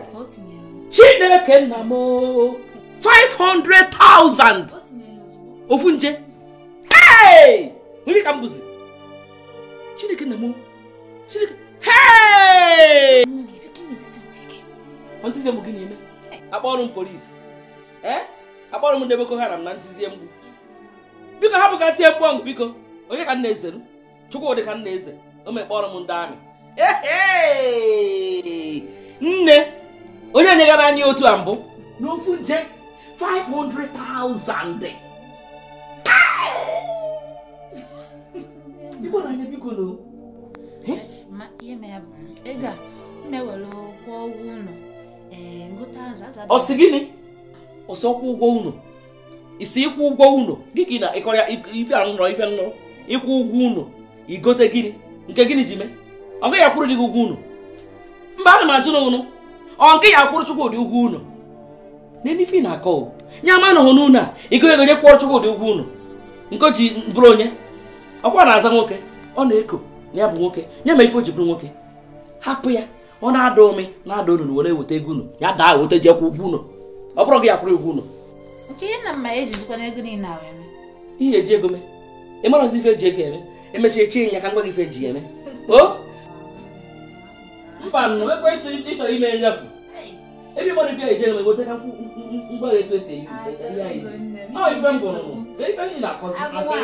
chineke nna m 500,000 ofu nje hey nwere ka m bụzi chineke nna m chineke hey ntizie m gị na-eme akpọrọ m polisi ee eh? akpọrọ m ndị boko haram na ntizie mgbu biko ha hapụ ka tie mgbu biko onye ka nna ezeru chukwu dị ka nna eze o mekpọrọ m ndị amị nne onye nyegara anyị otu a mbụ n'ofu nje 500,000 ọsị gịnị ọsọ kwụ ụgwọ ụnụ isi ịkwụ ụgwọ ụnụ gị gị na ịkọrịa ife anụrọ ife anụrọ ịkwụ ụgwọ ụnụ igote gịnị nke gịnị ji mee ọ gaghị akwụrụ dị gị ugwu unu mba ana m ajụ na ọ nke ya akwụrụ Chukwudi ụgwọ unu n'elu na-akọ nye ama na hụ n'unu a igonye gonye kwụọ Chukwudi ugwu unu nke ji bụrụ onye ọkwa na-aza nwoke ọ na-eko ya bụ nwoke nye ma ife o ji bụrụ nwoke hapụ ya ọ na-ada ome na-ada unu were weta ego unu ya daa weta ji kwụ ụgwọ unu ọ bụrụ gị ya ugwu unu e ihe eji ego mee ị mara ife eji ego eme emechaa echi ya ka ngwa gị ife eji ya eme [laughs] mba nọ ekwesị ịchọrọ ime nyafu ebe ịgbara ife hmm, eje na egoteka mgbara etu esi eyi ya eji ọ ife m gụrụ ife m na-akọzi atọ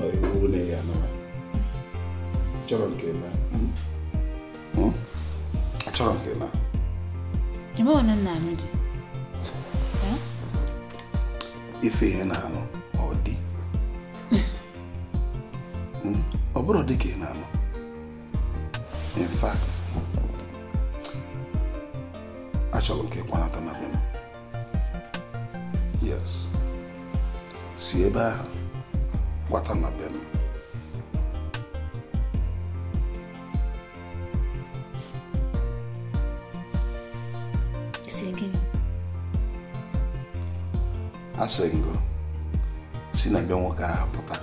Ọ iwu na ya nọ chọrọ nke na achọrọ m gị na ebe ọ nna anyị dị ife ihe na-anụ ọ dị ọ bụrụ dị ka ị na-anụ in fact achọrọ m ka ịkwanata na be yes si ebe ahụ gbata na bem. asị ngụ si na be nwoke ahụ pụta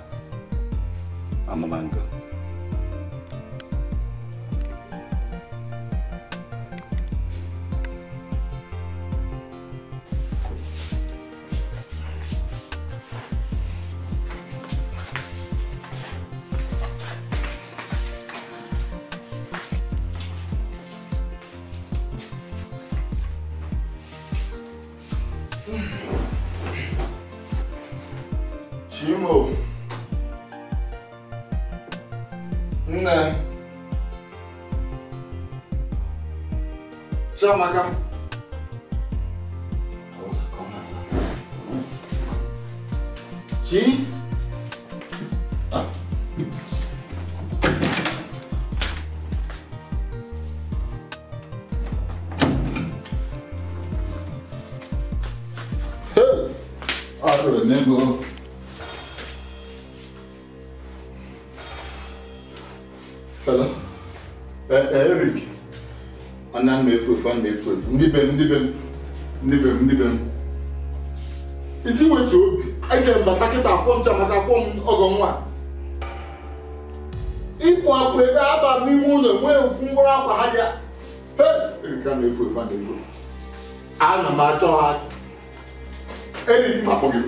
maka anya m na-efu efu ndị be m ndị be m ndị be m ndị be m isi wetu obi ejere m bata kịta afọ ncha maka afọ m ọgọ nwa ịpụ akpụ ebe aba n'ime ụlọ nwee ofu mkpụrụ akwa ha bịa erika na-efu efu a na-efu ana m achọ ha eriri m akpọ gị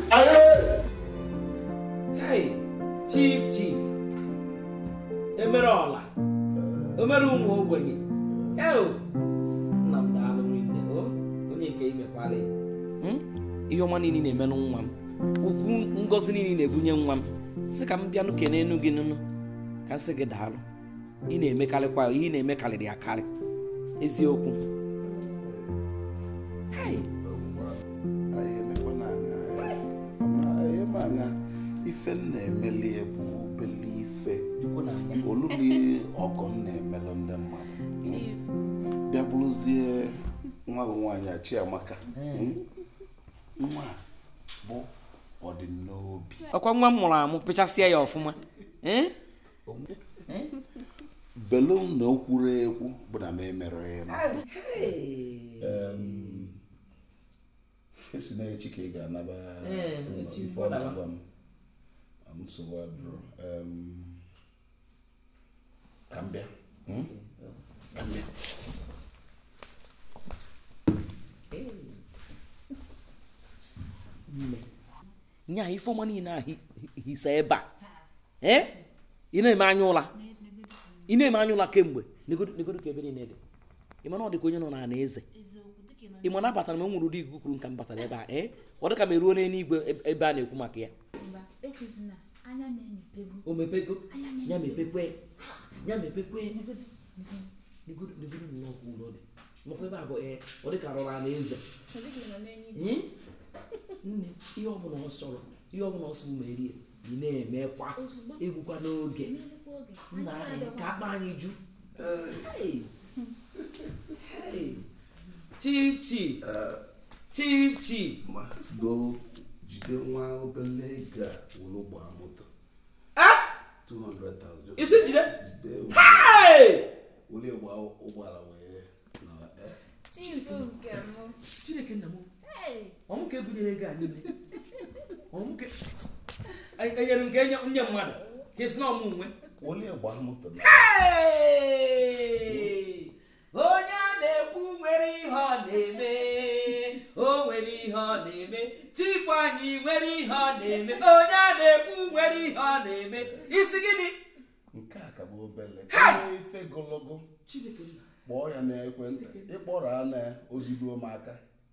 chief chief emere ọla emere ụmụ ogbenye Hmm? ihe ọma niile na-emelụ nwa m ukwu ngọzi niile na-ebunye nwa m si ka m bịanụ kee n'enu gị nụnụ ka sị gị daalụ ị na-emekarịkwa ihe ị na-eme karịrị akarị eziokwu bụ ọgọ m na-emelụ ndị nwa bụ nwaanyị a amaka hmm. Hmm? nwa bụ ọdịnobi ọkwa nwa m mụrụ amụ pịchasịa ya ọfụma eh? eh? belum na okwuru ekwu bụ na na m emere esi e na ka ị ga-anaba nsogbu adụrụ ka m ka m bịa hmm? nye a ifeọma niile a hisa ebe a ee ị na-eme anya ụla ị na-eme anya ụla kemgbe negodo ka ebe niile dị ị ma na ọ dịka onye nọ na ana eze ị ma na abatara m enwere ụdị ikuku kwuru m batara ebe a ee eh? ọ dịka m eruo n'eluigwe e, ebe a na-ekwu maka ya ọ dị ka ana eze nne ihe ọbụla ọ sọrọ ihe ọbụla ọsọ merie ị na-emekwa egwukwa n'oge nna anyị ka akpa anyị ju chief chief eh, jide nwa obele ego a wụrụ gbaa moto isi jide ụgbọala wee eh? chineke nna m ọmụ ka ebunyere gị a n'ime enyere m ka enye nye mmadụ ka esi na ọmụnwe onye a na-ekwu nwere ihe ọ na-eme o nwere ihe ọ na-eme chifu anyị nwere ihe ọ na-eme onye a na-ekwu nwere ihe ọ na-eme isi gịnị nke a ka bụ obele ife gologo kpọọ ya n'ekwentị ịkpọrọ ya na ozigbo m aka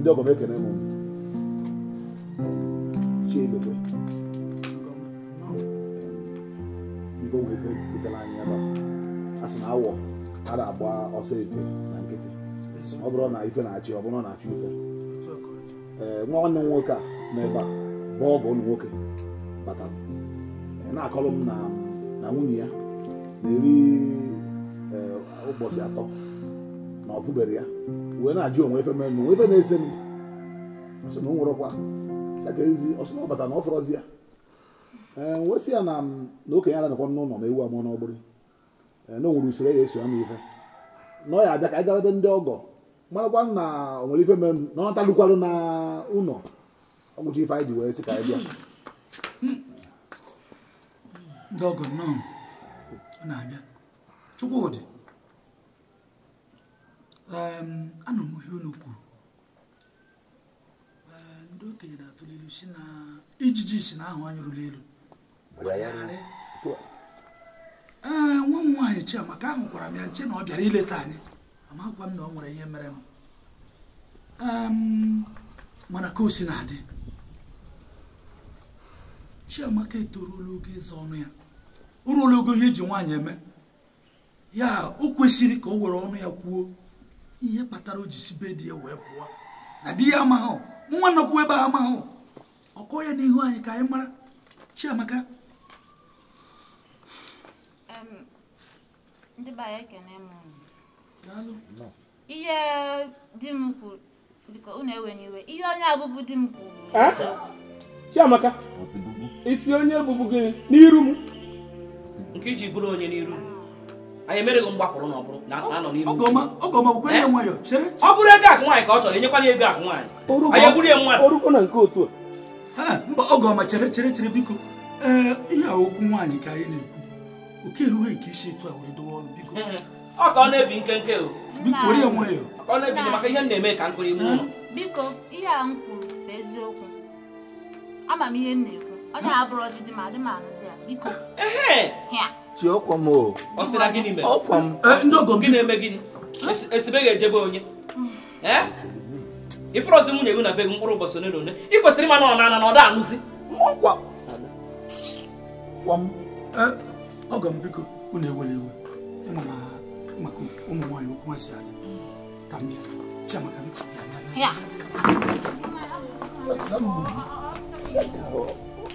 ndị ọgọ m ekene m chiebekwe biko nwee ike butere anyị ebe a sị na awọ a na-agba ọsọ efe na nkịtị ọ bụrụ na ife na-achị ọ bụrụ na achị ife ee nwa nwanne m nwoke a nọ ebe a bụ ọgọ ụmụ nwoke batara na-akọrọ m na nwunye ya na-eri ụbọchị atọ na ọ ya wee na-ajụ onwe efe mere onwe efe na-ese m sị na o nwere ọkwa sakerezi ọsụ na ọbata na ọ fọrọzi ya ee wesị ya na na okenye anakwa n'ụlọ ma ewu amụọ n'ọgbụrụ ee na o nwere usoro e ya eso ama ife na ọ ya abịa ka anyị gaa ebe ndị ọgọ marakwa na onwere ife mere na ọ natalụkwarụ na ụlọ ọgwụcha ife anyị ji wee sị ka anyị bịa ndị ọgọ nnọọ na-abịa Chukwudị ana m ihe unu kwuru ndị okenye na-atụli si na ijiji si na ahụ anyị ruru elu ee nwa m nwaanyị Chiamaka ahụ gwara m ya nche na ọ bịara ileta anyị amakwa m na ọ nwere ihe mere m mana ka o si na-adị Chiamaka etoruola oge ịza ọnụ ya o ruola ogo ihe eji nwaanyị eme ya o kwesịrị ka o were ọnụ ya kwuo ihe kpatara o ji si be di ya wee pụọ na di ya amaghụ nwa nọkwu ebe a amaghụ ọkọ ya n'ihu anyị ka anyị mara Chiamaka ihe di m kwuru biko unu enweghị iwe ihe onye abụbụ di m kwuru Chiamaka isi onye bụbụ gịnị n'iru m nke iji bụrụ onye n'iru m anyị emerego mgbapụrụ ọ bụrụ ego akụ nwaanyị ka ọ chọrọ enyekwana ego akụ nwaanyị anyị egburu ya mmadụ mba ọgọma chere chere chere biko ee eh, ihe a okwu nwaanyị ka anyị na-ekwu oke erughị nke isi etu a were dowe ọrụ biko eh, eh. ọ ka ọ na-ebi nkenke were ya nwayọ ọ na-ebi maka ihe m na-eme ka m kụrụ iwu ụlọ biko ihe a m kwuru bụ eziokwu ama m ihe m na-ekwu Ọ ga-abụrụ ọdịdị ma adị m arụzi ya biko. Chi ọkwa m o. Ọ sịra gịnị mere? Ọkwa m. Ndị ogo gị na-eme gịnị? Esibe ga-ejebe onye. Ifere ọzọ nwunye gị na be gị mkpụrụ ụbọchị ole na one Ị kwesịrị ịma na ọ na-ana anụzi. Ọkwa. Ọkwa m. Ọgọ m biko unu ewela iwe. na maka ụmụ nwaanyị okwu ha si adị. Ka m bịa. Chiamaka biko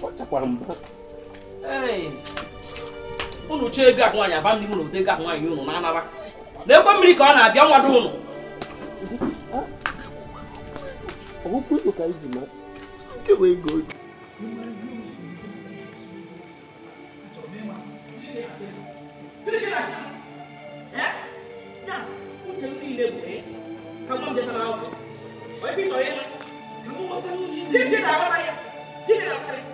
ọchakwara m unu chee ego ak nwaanyị aba ndị m na ode ego ak nwaanyị unu na-anaba na ekwe mmiri ka ọ na-abịa nwado unu ọgwụkwọ ikpo ka iji mara nke bụ ego oge Thank you.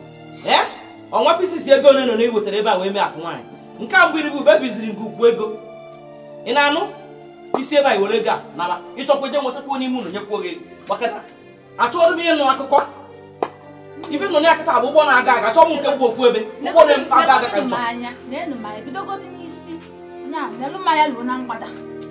ọnwa pisisi ego ole na ole wetara ebe a wee mee akụ nwaanyị nke a mbụ irigo ube biziri gị ego ị na-anụ isi ebe a iwere ego a nara ịchọkwa ije nwetakwa onye ime unu nyekwuo gị maka achọrọ m ịnụ akụkọ ibe nọ n'akịta bụ ụgbọ na-aga aga chọọ m nke mgbe ofu ebe ụgbọ na-aga aga ka m chọọ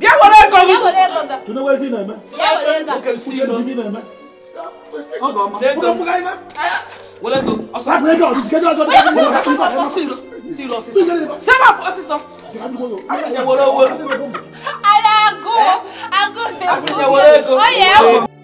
Bịa were ego gị. Tụnụ wee vi na-eme. Uche dị vi na-eme. Ọ ga-ọma. Ego m. Were ego m. Ọsọ. Hapụ ego ọdịdị kedu ọzọ. Siri ọsịsọ. Sema ọsịsọ. Asịnye were owere. Ala agụụ. Agụụ na-ekwu. Asịnye were ego. Ọ ya ewu.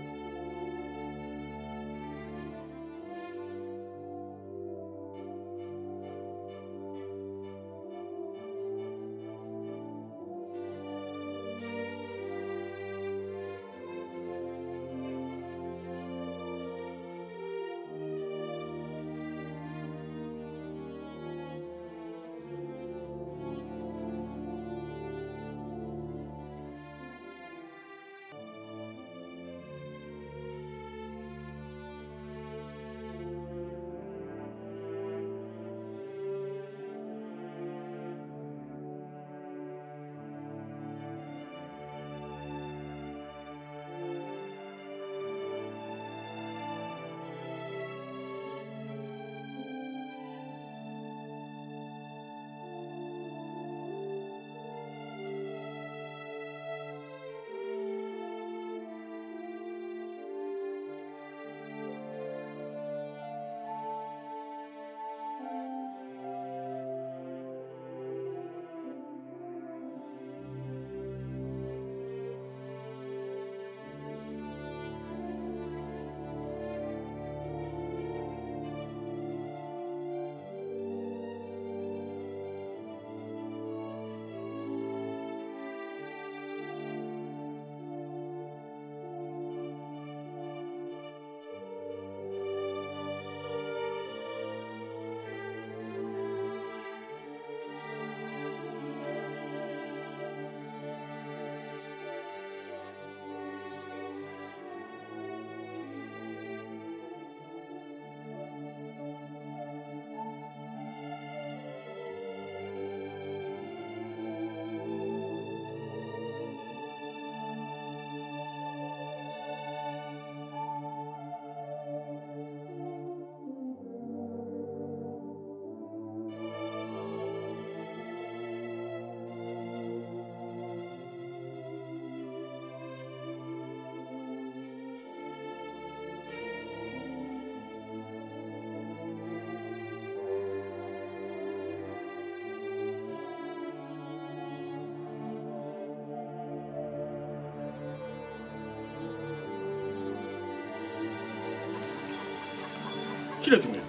Shirya ki mai.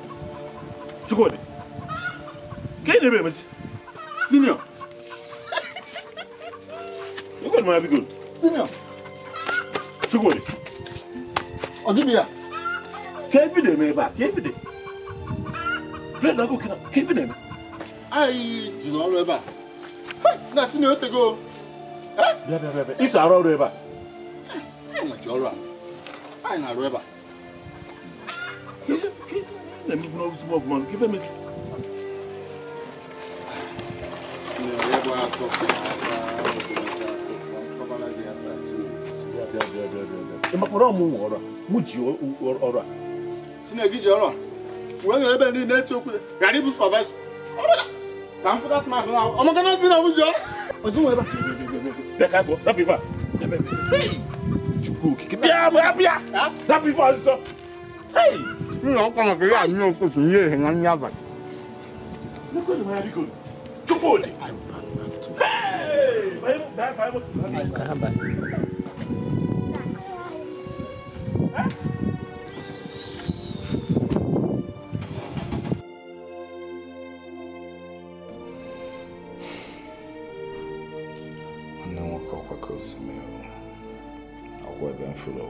Ki gode. Kai ne bai mace. Senior. You got my good. Senior. Ki gode. Ogibiya. Kefi da mai ba, kefi da. Friend na ko kina, kefi da mai. na jina ọrụ ebe a. Na senior o tego. Bịa bịa bịa. Ịso arụ ọrụ ebe a. Anyị na-arụ move, man. Give him his. ọ̀rọ̀ mu ọ̀rọ̀ mu ji ọ̀rọ̀ a. sinagi ji ọ̀rọ̀ wee nyere ebe niile eti okwu gari bụ supervisor ọbụla ka m pụta tụma ahụ ọmụ gana si na mu ji ọ̀rọ̀. ọdụ nwe ebe a. bịa ka agwọ rapụ ife a. chukwu okike bịa bịa bịa rapụ ife ọzọ suna kama ka yi a nan ko su yi hinan ya ba. Wannan wakwa kwa kawai su mai yau, akwai ben fulo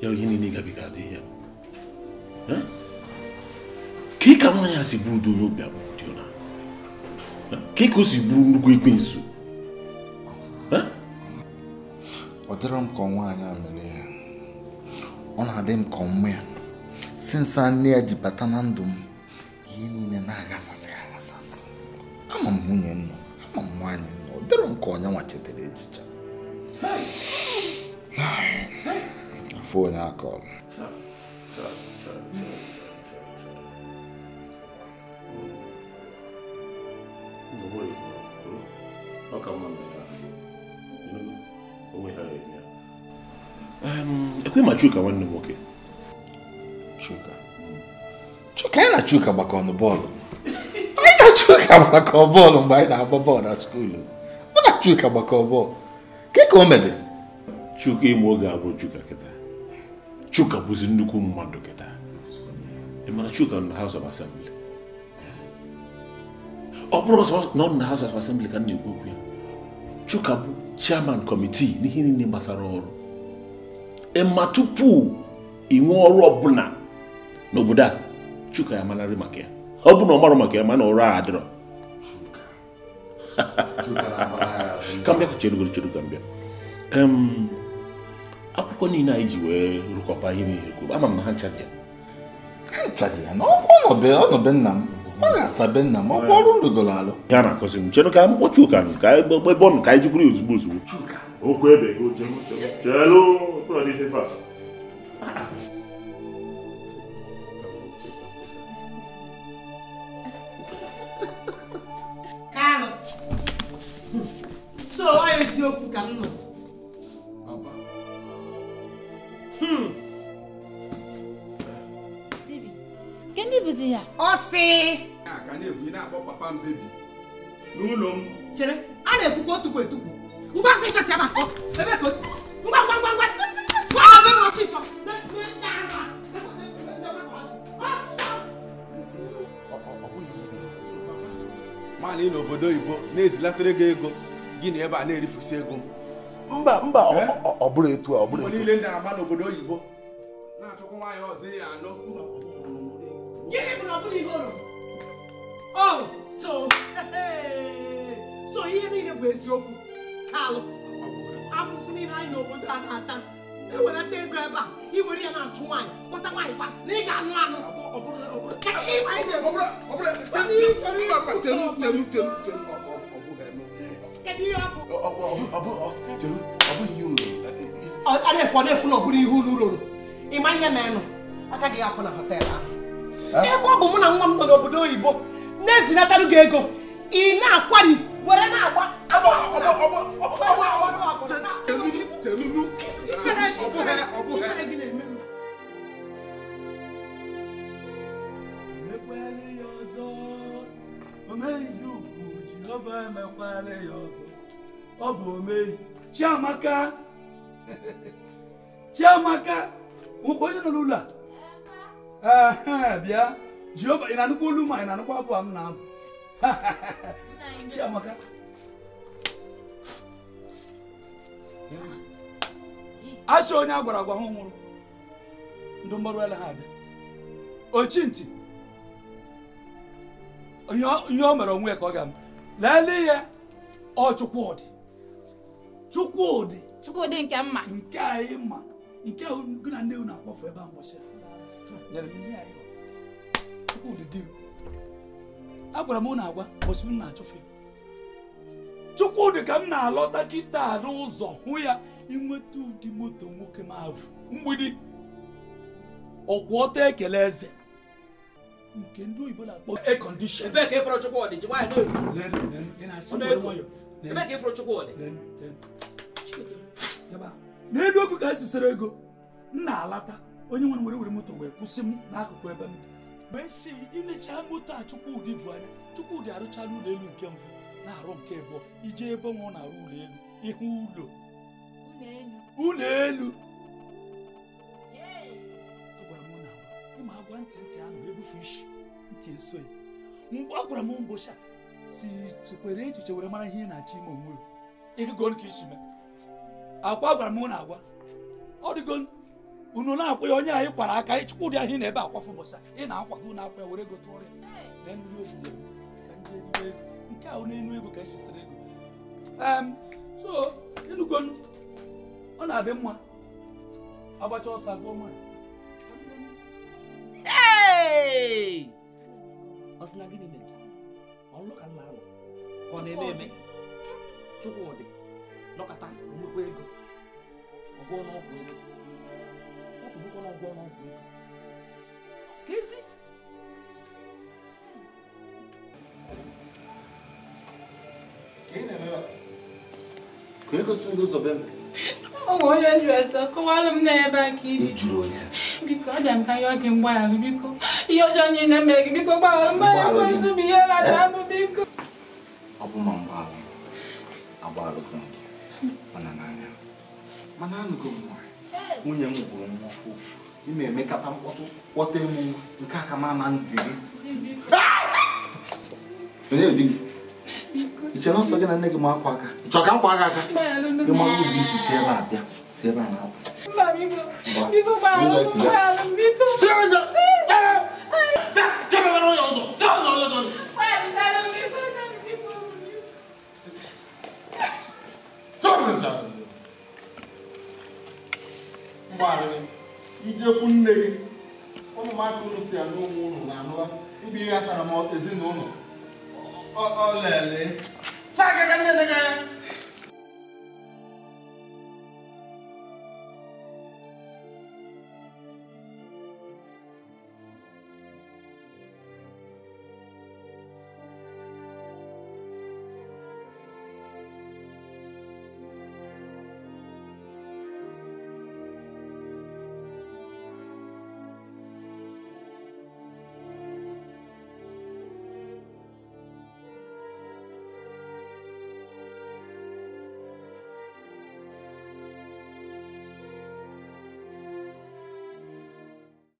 ya ihe niile gabiga adịghị ya ka ị ka nwaanyị a si bụrụ udo onye obi abụọ dị ọna ka ị ka o si bụrụ nnukwu ekwensu ọ dịrọ m ka nwaanyị a mere ya ọ na-adị m ka ọmụ ya sinsa nne ya ji bata na ndụ m alcohol. Um, ekwe ma Chuka nwanne nwoke. Chuka. Chuka ya na Chuka gbakọ ọnụ bọọlụ. Anyị na Chuka gbakọ bọọlụ mgbe anyị na-agba bọọlụ na skuulu. Mụ na Chuka gbakọ bọọlụ. Ke ka o mere? Chuka ịmụ abụ Chuka Chuka bụzi nnukwu mmadụ kịta ị mara Chuka nọ na House of Assembly ọ bụrụ na nọ na House of Assembly ka m na-ekwu okwu ya Chuka bụ chairman kọmitii n'ihe niile gbasara ọrụ ịma tupu inwe ọrụ ọbụla n'obodo a Chuka ya manarị maka ya ọ bụ na ọ marụ maka ya mana ọrụ a adịrọ ka mbịa ka chedu cheru akụkọ niile anyị ji wee rụkọpa ihe niile kwuru ama m na ha nchadị ya ha nchadị ya na ọnọbe nna m ọ ga-asabe nna m ọkwa ọrụ ndụgoro alụ ya na-akụzi m chenụ ka akwụkwọ Chuka nụ ka egbe bọọlụ ka anyị jikwuru ya ozugbo ozugbo okwu ebe chelu so ọ eziokwu ka m nọ ndị bụzi ya ọ sị ka na-ekwu ị na-akpọ papa m bebi n'ụlọ m chere a na-ekwukwa otukwu etukwu ngwa ngwa ịkasi ama ebe ka o si ngwa ngwa ngwa ngwa ngwa ebe m ọsịsọ mana ị n'obodo oyibo na-ezilatara gị ego gị na ebe a na-erifusi ego m mba mba ọ bụrụ etu a ọ bụrụ etu niile ndị na-ama n'obodo oyibo na-achọkwa nwaanyị ọzọ ya anọ gịnị bụ na ọ bụla ihe ụrụ rụrụ oh so so ihe niile bụ eziokwu kalụ afụfụ niile anyị n'obodo a na-ata ewelata ego ebe a iwere ya na-achụ nwaanyị pụta nwaanyị kwa na ị ga-anụ anụ ọ na ọ ihe unu rụrụ ihe na họtelụ ahụ ebe ọ bụ mụ na nwa m nọ n'obodo oyibo na-ezinatarụ gị ego ị na-akwari were na-agba ọ bụ omeyi chiamaka [laughs] chiamaka nwekwa onye nọ n'ụlọ a ee bịa jehova ị na-anụkwa olu ma ị na-anụkwa abụ m na-abụ chiamaka asị onye a gwara agwa ha nwụrụ ndụ mgbarụ ala ha abịa ochi ntị ihe o mere onwe ya ka ọ ga-ama lelee ya ọ Chukwudị Chukwudị Chukwudị nke mma nke anyị ma nke gụ na nne na-akpọfu ebe a mbọchị agwara m na agwa ụbọchị m na-achụfụ Chukwudị ka m na-alọta kịta n'ụzọ hụ ya inweta ụdị moto nwoke m avụ mgbidi ọkwụ ọta ekele eze nke ndị oyibo na-akpọ ekọndishọn n'elu ka esisere ego m na-alata onye nwere were were moto wee kwụsị m n'akụkụ ebe m wee si ilechaa moto a Chukwudi bụ anya Chukwudi arụchala ụlọ nke mbụ na-arụ nke abụọ ije ebe ọ na-arụ ụlọ elu ihu ụlọ ụlọ elu agwara m na ịma agwa ntị ntị anụ ebufe isi ntị eso ya mgbe ọ gwara m mbọchị si chekwere echiche were mara ihe ị na-achọ ime onwe ịdịgo ka isi mee akwa gwara m na agwa ọ dịgo unu na-akwa ya onye anyị kwara aka anyị chukwu dị ahị na ebe akwafu ị na-akwago na akwa ya were gote ọrịa na nri ofufe ka ndị elugo ego nke ahụ n'elu ego ka echisiri ego so elugo ọ na-adị mma agbacha ọsọ agụọ nwanyị ọ sị na gịnị mere ọlụ ka nna alụ ka ọ na-eme eme Chukwudị nọkọta nnukwu ego ọgwụ n'ọgwụ ego bụrụkwa na ụgwọ ọnụọgwụ ego ka ka ị gosi ndị ụzọ be m ọ onye jụrụ ese kọwara m na ebe a ka ibi biko ọ dị ka ihe oge mgbaghara biko ihe ọjọọ niile gị biko gbaghara bụ ihe rata abụ biko ọ bụ ma mgbaghara agbagharụgo gị mana n'anya mana anụgo nwunye m gwụrụ m ọkụ ị na-emekata mkpọtụ kpọta m nke aka m na ndị gị iche na nsọ gị na nne gị ma akwa aka ịchọ ka m kwa aka aka ịma ụzọ isi si ebe a bịa si ebe a na-apụ mgbaala ijekwu nne gị ụmụaka unu si anụ onwe unu na anụa ịbụ ihe sara m ezinụlọ olele na-agaga nne gị anya